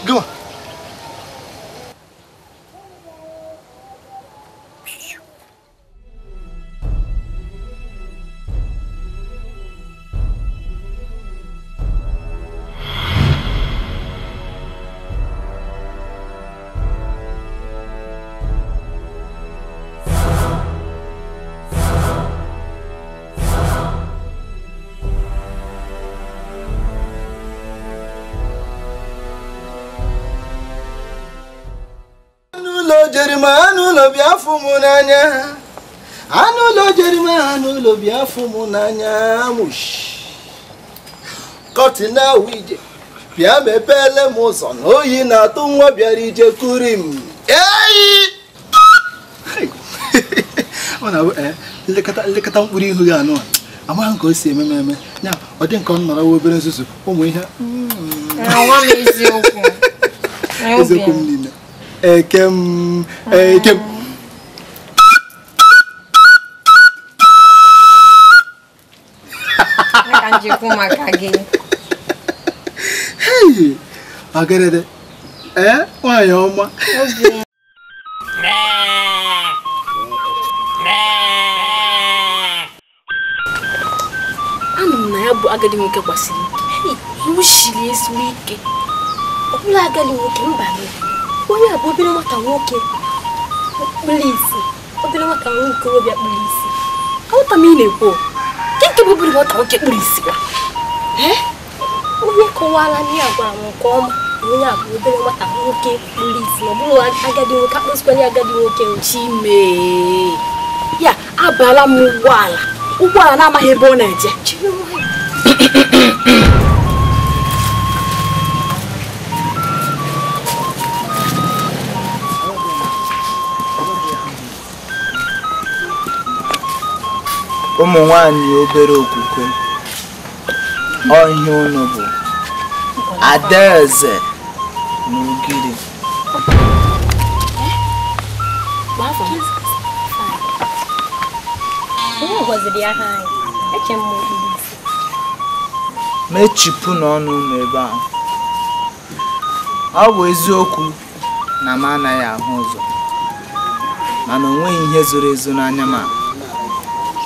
gịwa jerima n'ụlọ bịa afụ m n'anya anụ ụlọ jerima n'ụlọ bịa afụ m n'anya kọtina wije bịa m ụzọ na oyi na-atụ nwa bịara ije kuri m eyi ọ na eh, nlekọta mkpụrụ ihu ya anụ amaghị ka o si eme eme ya ọ dị nke ọ nọrọ obere nzuzu ụmụ ihe hmm. eziokwu m niile ẹ̀kẹ́m ẹ̀kẹ́m. ọgẹdẹdẹ ẹ nwaanyị ọma anụ m na ya bụ agadi nwoke gbasiri ike iwu shiri ezigbo ike ọ bụla agadi nwoke mba n'obi onye a bụ obere nwata nwoke kpụrụ isi obere nwata nwoke okorobịa kpụrụ isi aghọta m ị na-ekwu nke bụ obere nwata nwoke kpụrụ isi ya onye kọwara nne a gwara m nke ọma onye a bụ obere nwata nwoke kpụrụ isi na ọ bụrụ agadi nwoke akpụsịkwanye agadi nwoke chime ya abala m ụgbọala ụgbọala na-amaghị ebe ọ na-eje ụmụ nwanyị obere okwukwe ọhịa unu bụ adaeze na ugiri mechipụ n'ọnụ unu ebe ahụ ọ bụ eziokwu na m anaghị ahụ ụzọ mana o nweghị ihe zoro ezo n'anya m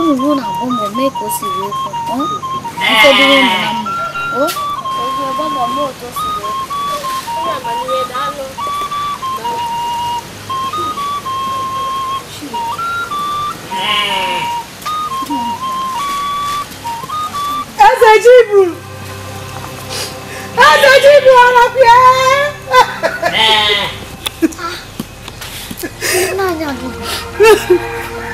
unu bụ na ụmụ mee ka o siri okwu ụfọdụ ụmụ na mma eze jibu eze jibu ọrapịa naanị ọdịda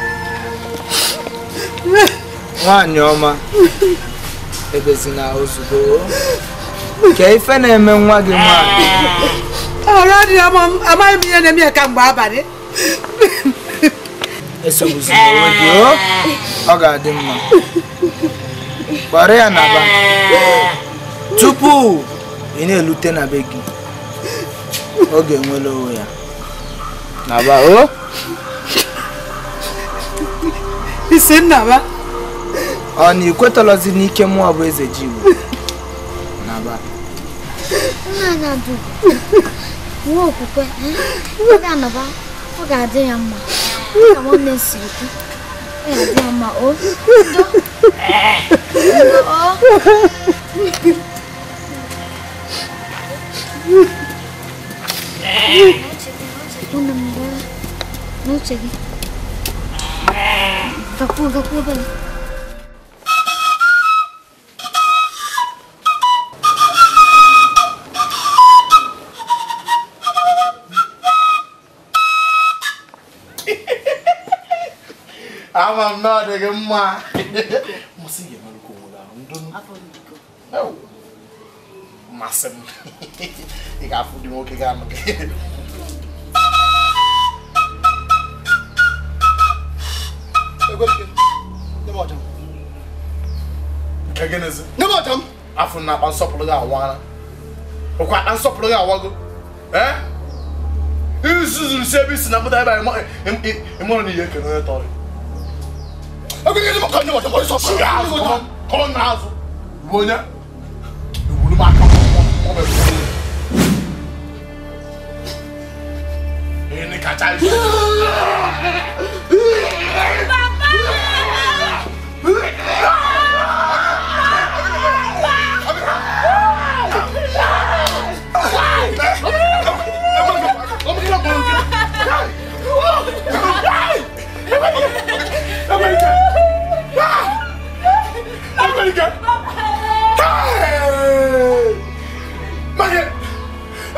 nwaanyị ọma ebezina ozugbo ka ife na-eme nwa gị nwaanyị ah, amaghị m ihe na-eme ya ka mgbe abalị esogbuzina onwe gị oh, ọ ga-adị mma gbara ya na tupu ị na-elute na be gị ọ ga onwe ya na aba o oh. ntị nnaba ọ na ikwetọlọzi n'ike mmụọ bụ eze ji igbo naba nwa okwukwe ọ ga-anọba ọ ga-adị ya mma ka nwanne siri kwu ọ ga-adị ya mma o Una mgbe n'uche Kapıldı kapıldı. ama m na ọ dịghị mma masị ga-emerụkwa onwere ahụ ndụ masị m ị ga-afụ dị nwoke ga-anụ gị Egenezi. Ne bọjam. Afọ na akpa nsọpụrụ gị awa ara. Okwa akpa nsọpụrụ gị awa gị. Eh? Isuzu si ebe isi na mụta ebe anyị ịmụrụ n'ihe ekele onye tọrọ. Egenezi mụ ka ndị bọjam ọrụ sọpụrụ gị azụ. Kọrọ na azụ. Bụ onye. Iwuru m aka ọ bụ ewu.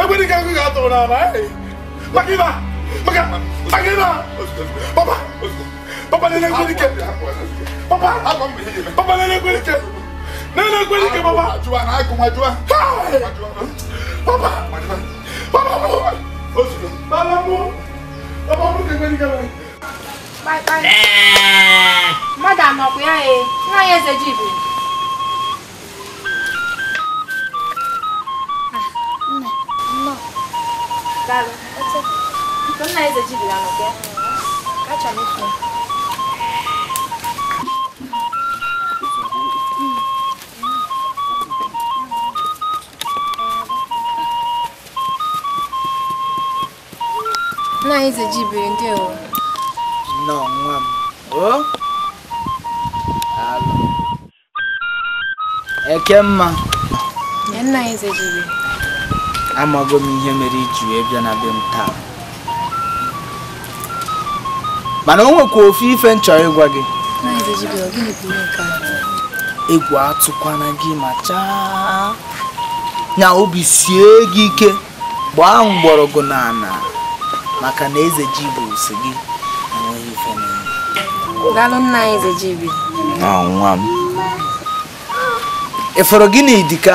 Pwede kang kakato na naman. Makiba! Maga! Makiba! Papa! Papa na lang kweli ka! Papa! Papa na lang kweli ka! Na lang kweli ka, Papa! Ajua na ako, ajua! Hi! Papa! Oh, papa mo! Papa mo! Papa mo kang kweli ka lang! Bye bye! Eh! Madam, ako yan eh. Nga yan sa jeep eh. Daalụ. Nna Eze jibila nọ gị. Kacha m ifu. Nna Eze jibiri ndị ewu. Nnọọ nwa m. O? Daalụ. Eke mma. Nna Eze jibiri. amago m ihe mere iji wee bịa na be m taa mana o nwekwa ofe ife m chọrọ ịgwa gị egwu atụkwana gị ma chaa nya obi sie gị ike gbaa mgbọrọgwụ n'ala maka na eze ji bụ si gị enweghị ife Daalụ nna gị na idika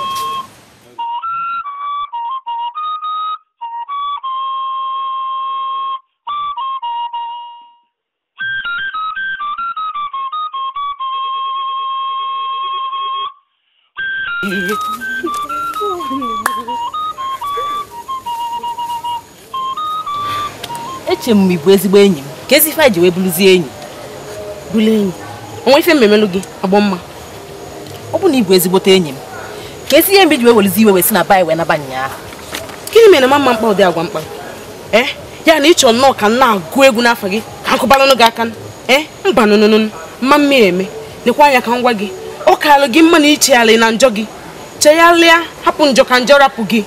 uche m bụ ezigbo enyi m ka ezi ife ji wee bụrụzie enyi bụrụ enyi onwe ife mmemelu gị agbọ mma ọ bụ na ị bụ ezigbote enyi m ka ezi ihe mgbe ji wee werezi iwe wee si na ba wee naba ahụ gịnị mere ma mma mkpa ụdị agwa mkpa ee eh, ya na ịchọ nnọọ ka nna na-agụ egwu n'afọ gị ka nkụbaranụ gị aka e mba nụnụnụnụ mma mmiri eme lekwa anya ka ngwa gị ọ karịrị gị mma na ichegharị na njọ gị chegharịa hapụ njọ ka njọ rapụ gị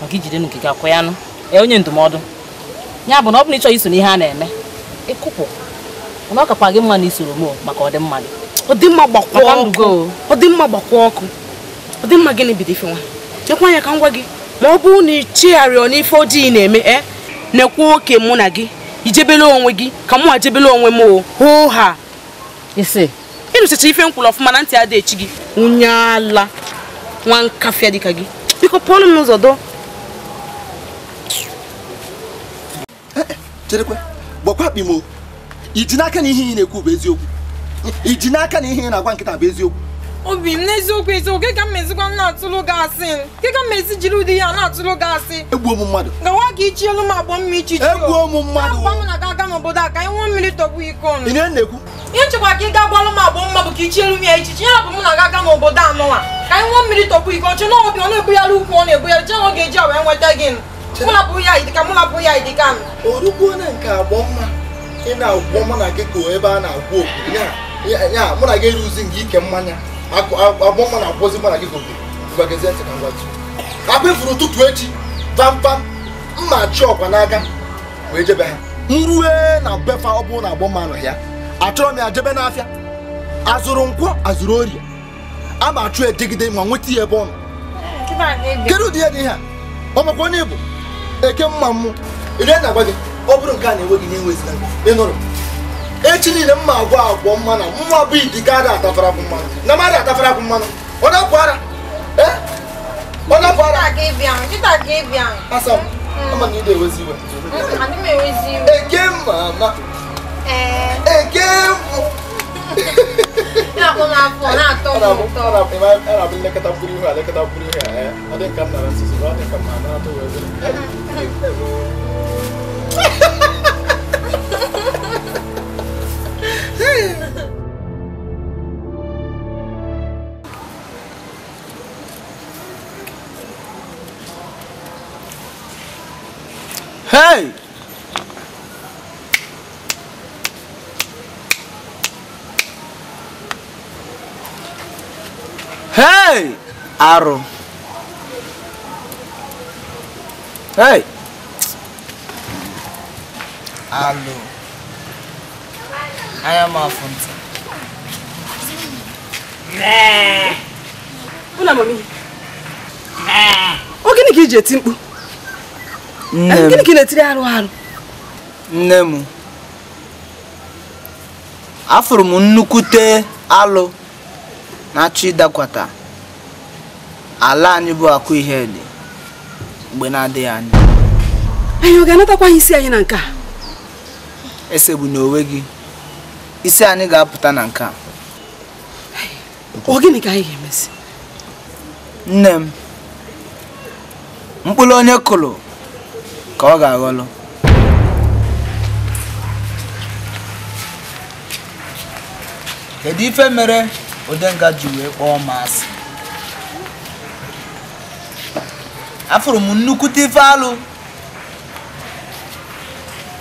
maka ijide n'ogige akwa ya onye ndụmọdụ ya bụ na ọ bụ bụrụ ịchọ iso n'ihe a na-eme ịkụpụ na ọ kakwa gị mma na isoro m maka ọdịmma gị ọdịmma gbakwuo ọkụ ọdịmma gbakwuo ọkụ ọdịmma gịnị bido ife nwa chekwa anya ka m gwa gị ma ọ bụrụ na ị chigharịọ n'ife ojii na-eme e na-ekwu oke mụ na gị ijebele onwe gị ka mụ ajebele onwe m o hoo ha ise ịnụchacha ife nkwụrụ ọfụma na ntị adịghị echi gị onye ala nwa nkafịa dịka gị biko pụọlụ m cherekwe gbakwa iji n'aka na ihe ị na-ekwu bụ eziokwu iji n'aka na ihe ị na-agwa nkịta bụ eziokwu obi m n'eziokwu eziokwu ga ka m na-atụlụ gị asị m jiri ụdị ya na-atụlụ gị asị egbuo m mmadụ gawa ka ichi elu m agbọ mma ichi m mmadụ na ga aga n'obodo a ka mmiri tọgbu iko m ihe na-ekwu ihe ka ị ga m agbọ mma bụ ka ichi elu m ya ya m na aga n'obodo a mụ na bụ ya idika mụ na bụ ya idika m orukwuo na nke agbọ mma ị na-agwọ mụ na gị ka ebe a na-agwọ okwu ya mụ na gị eruzi nke ike mmanya agbọ mma na-agwọzi mụ na gị gobe akpa ifuru ụtụtụ echi pampam mma chi ọkwa n'aka wee jebe ha m rue na befa ọ bụrụ na agbọ mma nọ ya achọrọ m ya jebe n'afịa azụrụ nkwọ azụrụ orie a ma achụ edegide ma nweta ya ebe ọ nọ kedu ụdị ihe dị ihe a ọ makwa onye bụ eke mma m rie na agwa gị ọ bụrụ nke a na-enwe gị na-enweziga ị nụrụ echi niile mma agwọ agwọ mmanụ mma bụ idi karịa atafara bụ mmanụ na mmadụ atafara bụ mmanụ ọ na-apụ ara eh? ọ na-apụ ara asa mm. mm, eke mma ama eh. eke mbụ anaponaponato ana bin na buri ha da kata buri ha eh adin kan na su su adin kan ma na to wezo Hey! arụ alụ anya m afụ ntị ogene ka iji eti mkpu gịnị ka ị na-etiri arụ arụ nne m afụrụ m nnukwute alụ na-achọ ịdakwata ala anyị bụ akụ ihe dị mgbe na-adịghị anya anyị ọ ga-anatakwa isi anyị na nke a esegbu n'onwe gị isi anyị ga-apụta na nke a ọ gịnị ka anyị ga nne m mkpụrụ onye kụrụ ka ọ ga-aghọlụ kedu ife mere odenga ji wee kpọọ m asị afụrụ m nnukwute ife alụ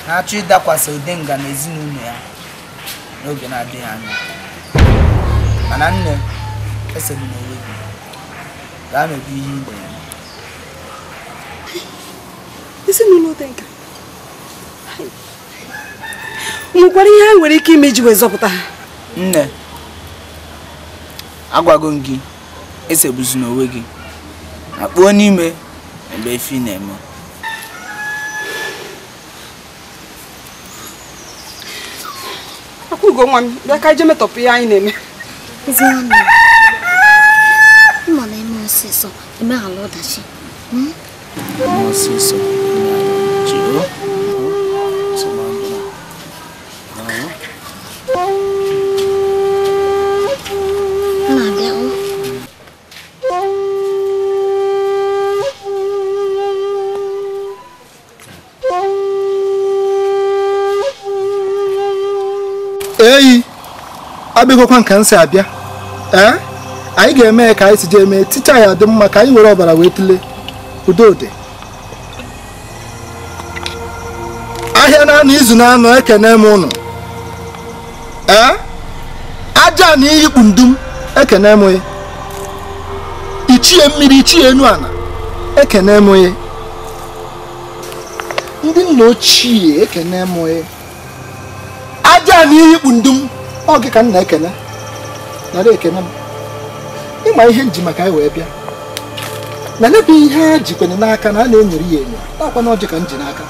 na-achọ ịdakwasị Odenga na ezinụlọ ya n'oge na-adịghị anya mana nne esoghị n'onwe gị gaa mebe ihe ime ya ezinụlọ nwekwara ihe ha nwere ike ime iji wee zọpụta ha nne agwago m gị esegbuzina n'onwe gị na kpuo n'ime ebe efi na-eme akwụgo nwa m bịa ka metọpụ ihe anyị na-eme mma na eme ọsịsọ emeghala ọdachi ọsịsọ hmm? abịagokwa nka nke si abịa ee eh? anyị ga-eme ya ka anyị si jee mee ticha ya dị mma ka anyị were ọbara wee ụdị udode ahịa na anọ izu na eke ekene m ụnụ ee eh? aja na iyikpu ndum ekene m ya ichie mmiri ichie enu ana ekene m ya ndị nna ochie ekene m ya aja na iyikpu ndum ọ gị ka m na-ekele narị ekene m ịma ihe nji maka anyị wee bịa na n'ebe ihe a jikwere n'aka na a na-enyere ya enyo nakwa na ọjị ka m ji n'aka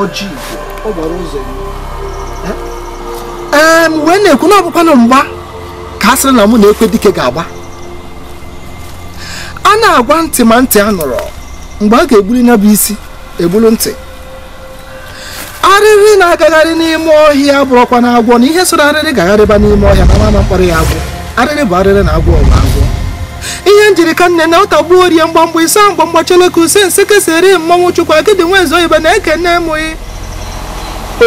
ọjị igwe ọ gbara ụzọ enyo ee m wee na-ekwu na ọbụkwanụ mgba ka a sịrị na mụ na ekwe dike ga-agba a na-agwa ntị ma ntị a nụrụ mgbe a ga-egbuli ya isi egburu ntị arịrị na-agagharị n'ime ọhịa bụrụkwa na agwọ na ihe so arịrị gagharịba n'ime ọhịa na mama mkpọrọ ya agwọ arịrị bụ arịrị na agwọ ọgwụ agwọ ihe njirika nne na ụta gbuo rie mgbamgba ise mgba mgbacheleka use nse kesere mmanwụ chukwu agịdị ibe na nne emụghị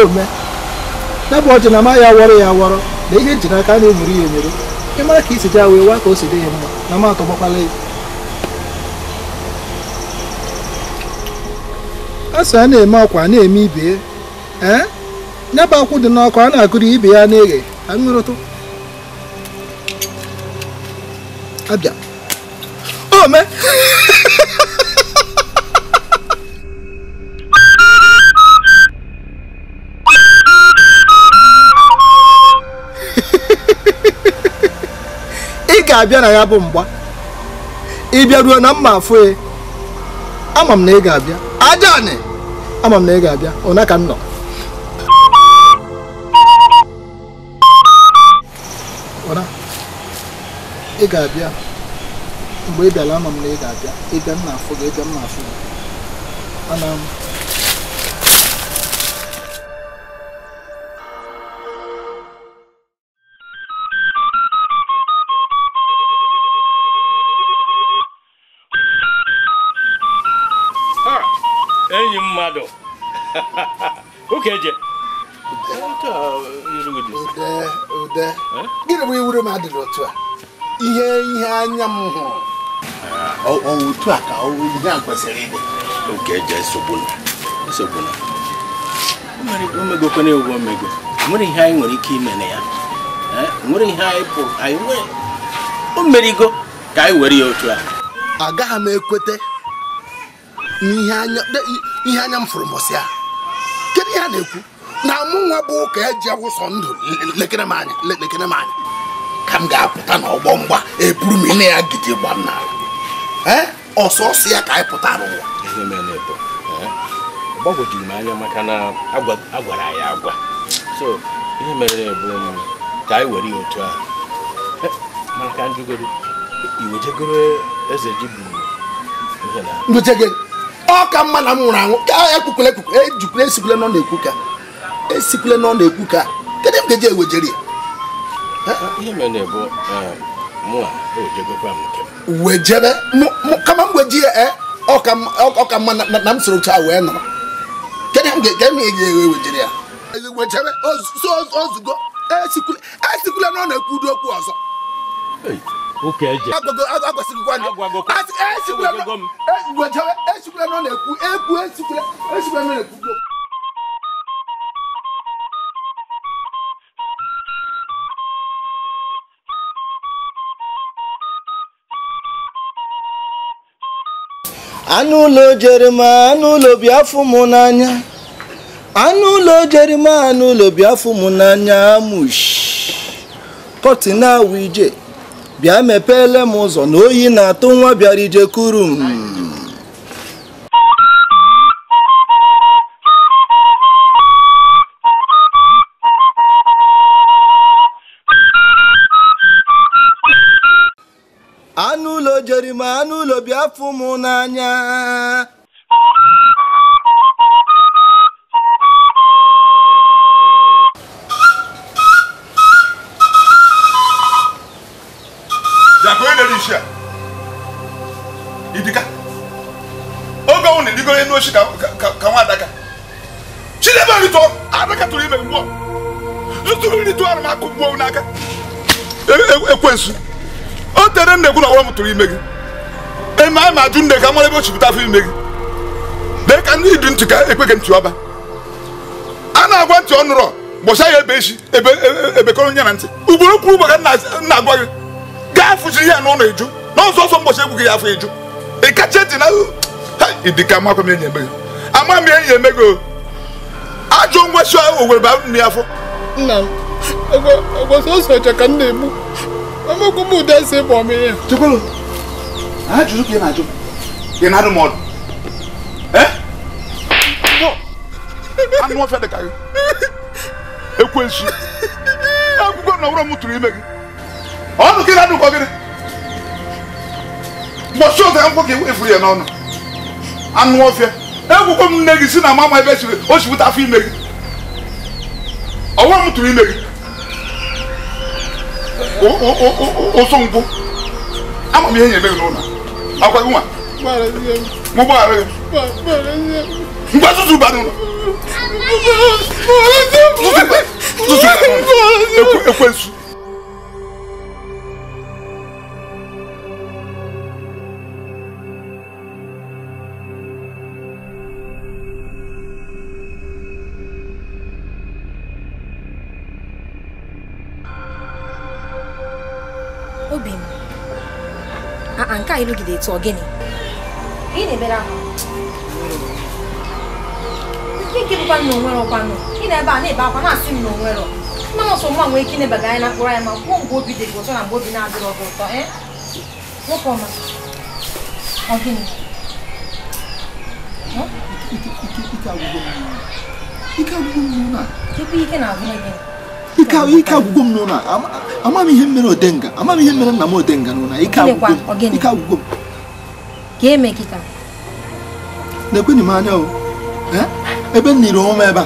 ome ya bụ ọjị na ma ya wọrọ ya awọrọ na ihe njiri aka na-emuru ya emere ịmara ka isi ja wee waa ka o si dị ya mma na ma ya a sị a na-eme ọkwa na-eme ibe ee nyaba akwụ dị n'ọkụ a na agụrụ ibe ya na-eghe aṅụrụtụ abịa ome ị ga-abịa na ya bụ mgba ịbịa ruo na mma afụ e. ama m na ị ga-abịa ajaanị ama m na ị ga-abịa ụna ka m nọ ị ga-abịa mgbe ị bịara ama m na ị ga-abịa ịbịa m na-afụ gị ịbịa m na-afụ gị ana m enyi mmadụ ụka eje gịnị bụ iwuru m adịrị otu a ihe ihe anya m hụrụ otu a ka ihe a kwesịrị ịdị oke eje esogbuna esogbuna o megokwana ewu omego nwere ihe anyị nwere ike ime na ya nwere ihe anyị pụrụ anyị nwere o merigo ka anyị were ya otu a agaghị m ekweta n'ihe anya m fụrụ mọsị a kedu ihe a na-ekwu na mụ nwa bụ ụka eji awụsọ ndụ lekere m anya lekere m anya ka m ga-apụta n'ọgbọ mgba eburu m ịna ya gidi gba m n'ala ọsọsọ ya ka anyị pụtara ụwa gbagwojuru m anya maka na agwara ya agwa so ihe mere bụ ka anyị were ya otu a maka ndị goro iwejegoro eze ji bụ ọ ka mma na m nwụrụ anwụ ka ekpukwele ekpukwele ejikwele esikwele nọ na-ekwu ka esikwele nọ na-ekwu ka kedu m ga-eji ewejere ya ihe mere bụ um, mụa e nke kama m weji ya eh? ọka mma na m soro chaa wee nọrọ kedu m ga-ewe e wejere ya e ozugo esikwula na ọ na-ekwudo okwu ọzọ esikwula na ọ na-ekwu ekwu esikwula na ọ na-ekwudo anụ ụlọ jerima anụ ụlọ biafụ m n'anya anụ ụlọ jerima anụ ụlọ biafụ mụ n'anya amush awụ ije bịa mepeele m ụzọ na oyi na-atụ nwa bịara ije kuru obi afọ m n'anya idiga oge ọnwụ na-edigo elu ochi ka nwa adaka chidebe rito adaka tụrụ ime mgbuo zụtụrụ nri tụọ arụmakụ mgbuo n'aka e, e, ekwensu o tere m na egwu na ọwa m tụrụ ime gị eme ama adu ajụ nne ka mara ebe o chupụta afọ ime gị lee ka ndị idu ntị ka ekwe gị ntị ọba a na-agwa ntị ọnụrọ nụrọ gbọsa ya ebe echi ebe ebekọrọ nye na ntị ugboro kwuru ụgbọ ka na-agwa gị gaa fụchiri ya n'ụlọ eju na ọsọ ọsọ mbọchị egwu gị ya afọ eju ị kacha eti na idika amakwa m enyi eme gị ama m enyi eme gị ajọ ngwesi owere ba nri afọ nna m agwa sọsọ ọcha ka m na-egbu amakwa m ụda esi ịbụ ọmịrị ya A jụrụ ka ị na-ajụ ị na-adụ m ọdụ anụ ọfịa dị ka gị ekwensu akwụkwọ na ọwụrọ m tụrụ ime gị ọdụ ka ị na-adụ ụkọ gịnị e ụzọ akwụkwọ ka efuru ya n'ọnụ anụ ọfịa ekwukwe m nne gị si na mama ebe siri o sipụta afọ ime gị ọwụrọ O o o o o nkwụ ama m ihe nyere gị n'ụlọ akwai kuma mu ba rai ba su ba nuna su su ba nuna ekwensu nwaanyị elu gị dị ọ gịnị ị na-emere ahụ nke bụkwa na onwere ọkwanụ ị na-ebe a na-ebe akwa na-asị m na onwere mmanụ ọsọ nwa nwee ike ịnebaga anya na mkpụrụ anya ma kwuo mgbe obi dị gị ụtọ na mgbe obi na-adịrọ gị ụtọ nwoke ọma ọ gịnị ike agwụgwọ mmiri na ebe ike na-agwụnye gịnị ike agwụgwọ m n'ụlọ ama m ihe mere odenga ama ihe mere nna m odenga n'ụlọ ike agwụgwọ m na-ekwenye m anya ebe m niri ebe a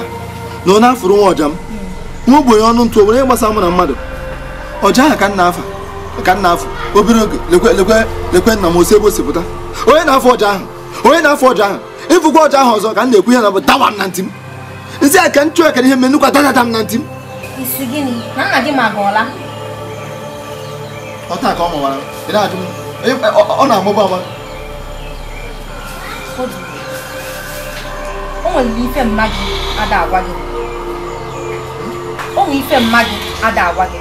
na onye afụrụ nwa ọja m hmm. nwa ọnụ ntụ obere gbasa mụ na mmadụ ọja ahụ ka nna afa ka nna afọ obere oge lekwe nna m osi ebe o na-afọ ọja ahụ onye na-afọ ka m ihe na dawa m na ntị m a ka m chụọ ekere ihe m na ntị isi gịnị? Na nna gị ma gị Ọ taa ka ọ mụwara. Ị na-ajụ Ọ na-amụba ama. O nwere ife mma ada agwa gị. O nwere ife mma gị ada agwa gị.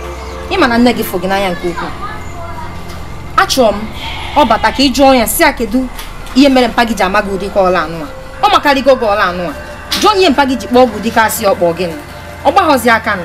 Ị ma na nne gị fụ gị n'anya nke ukwuu. Achọrọ m ọ bata ka ị jụọ ya si a kedu ihe mere mpa gị ji ama gị ụdị ka ọla anụ a. Ọ makarịgo gị ọla anụ a. Jụọ onye mpa gị ji kpọọ ọgwụ dịka asị ọkpọ gịnị. Ọ gbaghọzi aka nụ.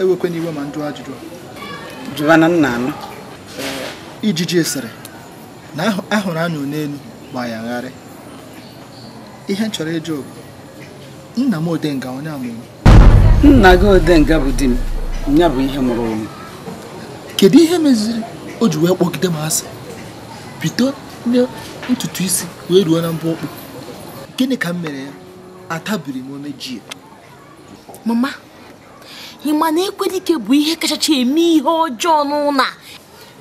ewekwe n'iwe ma njụọ ajụjụ jụwana nna anụ eh, ijiji esere na ahụrụ anyụ n'elu ma ya ngharị ihe m chọrọ ịjụ nna m odenga onye amụrụ nna gị odenga bụ di m ya bụ ihe mụrụ ụmụ kedu ihe meziri o ji wee kpọgide m asị bido na ntutu isi wee ruo na mbụ ọkpụ gịnị ka m mere ya atabiri m omejie mama ị ma na dike bụ ihe kachacha eme ihe ọjọọ n'ụlọ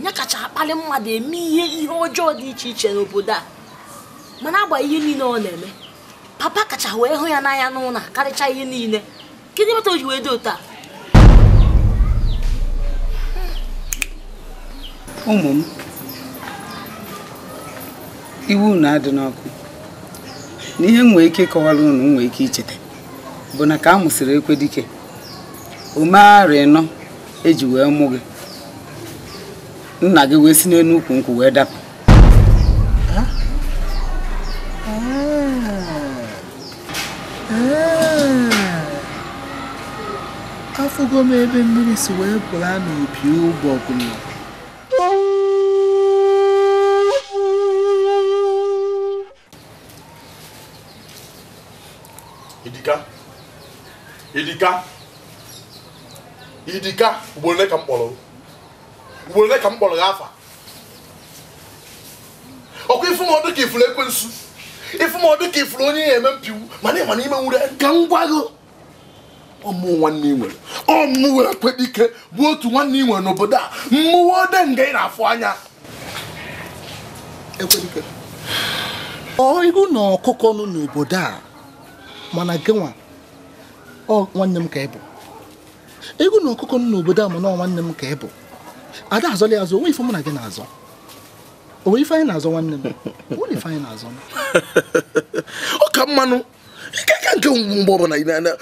ya kacha akpali mmadụ eme ihe ihe ọjọọ dị iche iche n'obodo a mana agba ihe niile ọ na-eme papa kacha wee hụ ya n'anya n'ụlọ karịcha ihe niile kedu mata o ji wee dị otu ụmụ m iwu na-adị n'ọkụ na ihe m nwee ike ịkọwara m nwee ike icheta bụ na ka a mụsịrị dike umeghara nọ eji wee mụ gị nna gị wee si n'elu ukwu nkwụ wee dapụ afụgo m ebe mmiri si wee pụla n'opi ụgbọgụlụ edika edika. idiga ugboro ole ka m kpọrọ ugboro ole ka m kpọrọ gị afa ọkwa ifụmọdụ ka ifuru ekwensu ifụmọdụ ka ifuru onye ya eme mpiwu mana ịma na ime nwure ka m gwa gị ọmụ nwanne ị nwere ọmụ were kweta ike bụ otu nwanne ị nwere n'obodo a mmụọ ode nga ị na-afụ anya ekwedike ọ ịhụ na ọkụkọ nọ n'obodo a mana gịnwa ọ nwanne m ka ị bụ ego na ọkụkọ m n'obodo a mana nwanne m ka ị bụ ada azọla ya azọ onwe ife mụ na gị na-azọ onwe ife anyị na-azọ nwanne m onwe ife anyị na-azọ ọ ka mmanụ ike ka nke mgbe ọbụla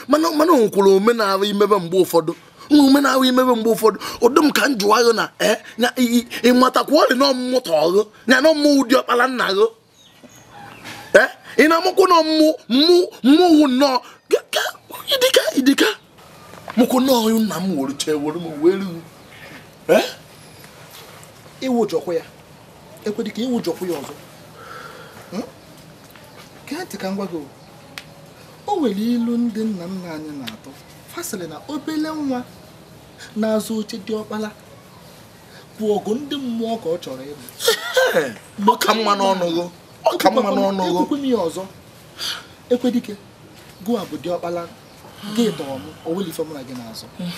mana o nwekwara omenala imebe mgbe ụfọdụ nwa omenala imebe mgbe ụfọdụ ụdị m ka m jụwa agụ na eh, ya ịmatakwa ọrị na ọmụmụta ọghụ ya na ọmụmụ ụdị ọkpara nna gụ eh, ị na-amụkwụ na ọmụ mụ mmụọ nnọọ ịdịka ịdịka. moko na oyún nna m were chee were m wee ru ịwụjọkwa ya ekwedị ka ịwụjọkwa ya ọzọ gee ntị ka m gwa gị o nwere ilu ndị nna nna anyị na-atọ fasịrị na obele nwa na-azụ oche dị ọkpala bụ ọgụ ndị mmụọ ka ọ chọrọ ịbụ ọka mma n'ọnụgo ọka mma n'ọnụgo ekwekwe m ya ọzọ ekwedike gụwa bụ dị ọkpara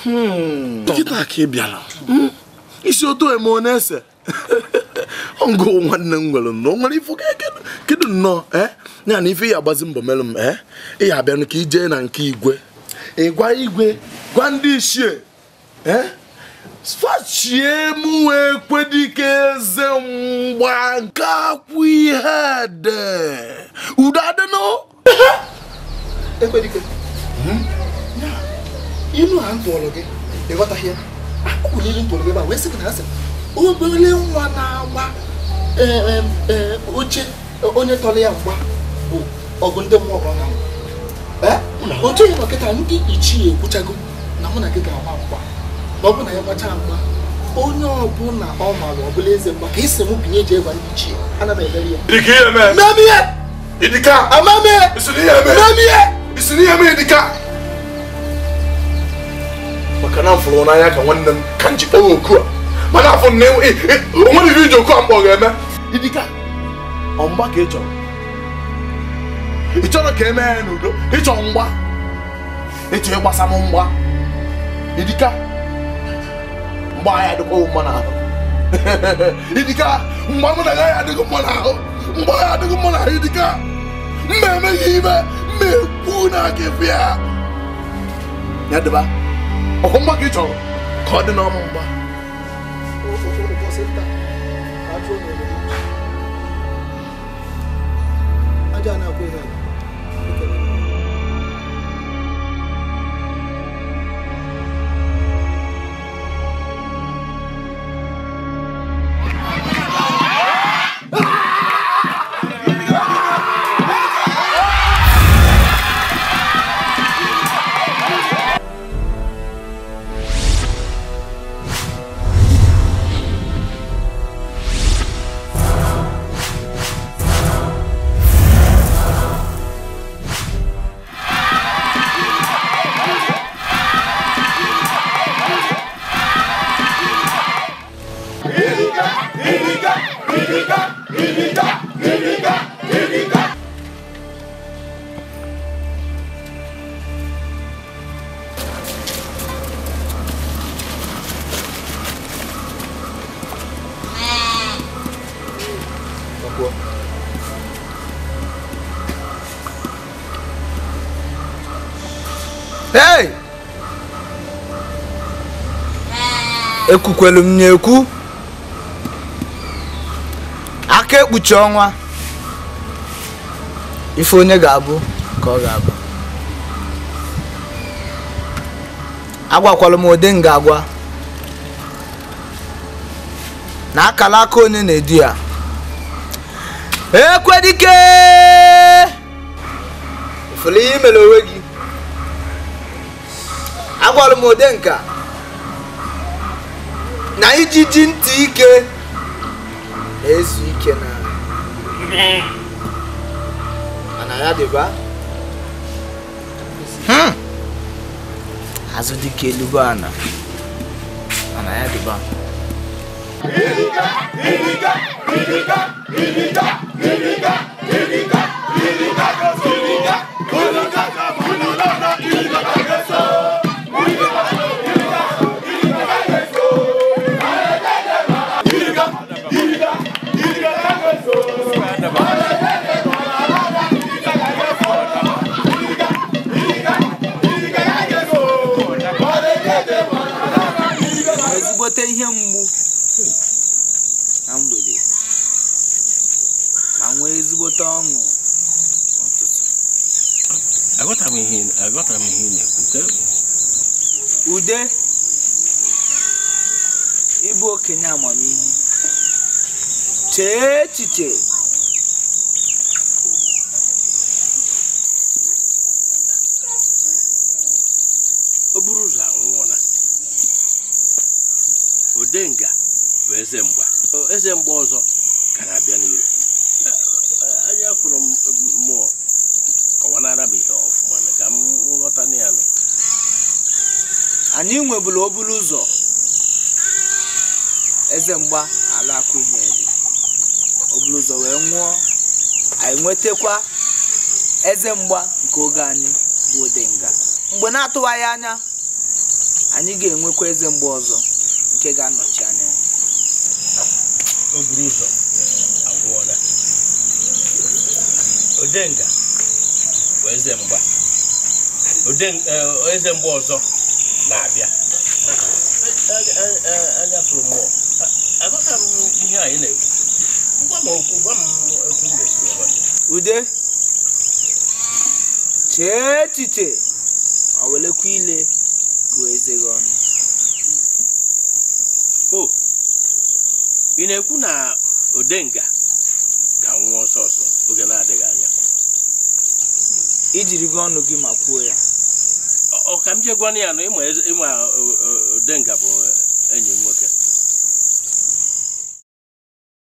Hmm. nkịta ka ị bịara hmm. isi otu eme ọ ese ngụ nwanne m nwere nọ nwere ifu e kedu nnọọ eh? ya na ife ya agbazi mbọ merụ m eh? ịya abịanụ ka ijee na nke igwe gwa igwe gwa ndị ichie eh? fachie m wee kwedike eze mgba nke akwụ ihe ede udo adịnụ ekwedike ilu ha ntụrụ gị ịghọtaghị ya akụkụ niile ntụrụ gị ebe a wee sị gị na asị obere nwa na-agba oche onye tọrọ ya mgba bụ ọgụ ndị mmụọ ọgọ na otu ya nọkịta ndị ichie ekwuchago na mụ na gị ga-agba mgba na ọ bụ na ya gbachaa mgba onye ọbụla ọ maara ọ bụla eze mgba ka isi m binye ji ịgwa ndị ichie ana m emere ya amamihe isi na ihe mere dị ka maka na mfụrụ n'anya ka nwanne m ka njikpọrọ oku a mana afọ na onwe riri iji oku a mkpọ ga-eme idika ọmgba ka ị chọrọ ị chọrọ ka emee ya n'udo ịchọ mgba ịchọ ịgbasa m mgba idika mgba agha adịkwa mma n'ahụ idika mgba mụ na agaghị adịghị mma n'ahụ mgba agha adịghị mma n'ahụ idika mma emeghị ime mekwu na gị bịa ya dịba ọkwa mgba gị chọrọ ka ọ dị n'ọmụ mgba aja na-akwụ ihe ekwukwelu m na-ekwu aka ekpuchi ọnwa ife onye ga-abụ ka ọ ga-abụ agwakwala m ụdị nga agwa na akala aka onye na-edu ya ekwedike ifụrụ ihe imere onwe gị agwala m ụdị nka na ijiji ntị ike na-ezu ike na mana ya dịba azụ dịka elugbo ana mana ya dịba Iriga, ka iriga, iriga, iriga, iriga, ka iriga, iriga, iriga, iriga, ka iriga, Chee chee. bụkwa eze mgba nke oge anyị bụ Odenga mgbe na-atụwaghị anya anyị ga-enwekwa eze mgba ọzọ nke ga-anọchi anya buru ụzọ agwụọla Odenga bụ eze mgba ọzọ na-abịa anyapụrụ ihe anyị na-ekwu ude chee echiche ma welekwa ile gụọ eze gị ọnụ o ị na-ekwu na odenga ga-anwụ ọsọ ọsọ oge na-adịghị anya ijiri gị ọnụ gị ma kwuo ya ọ ka m jee gwanụ ya na ịma e, e, odenga bụ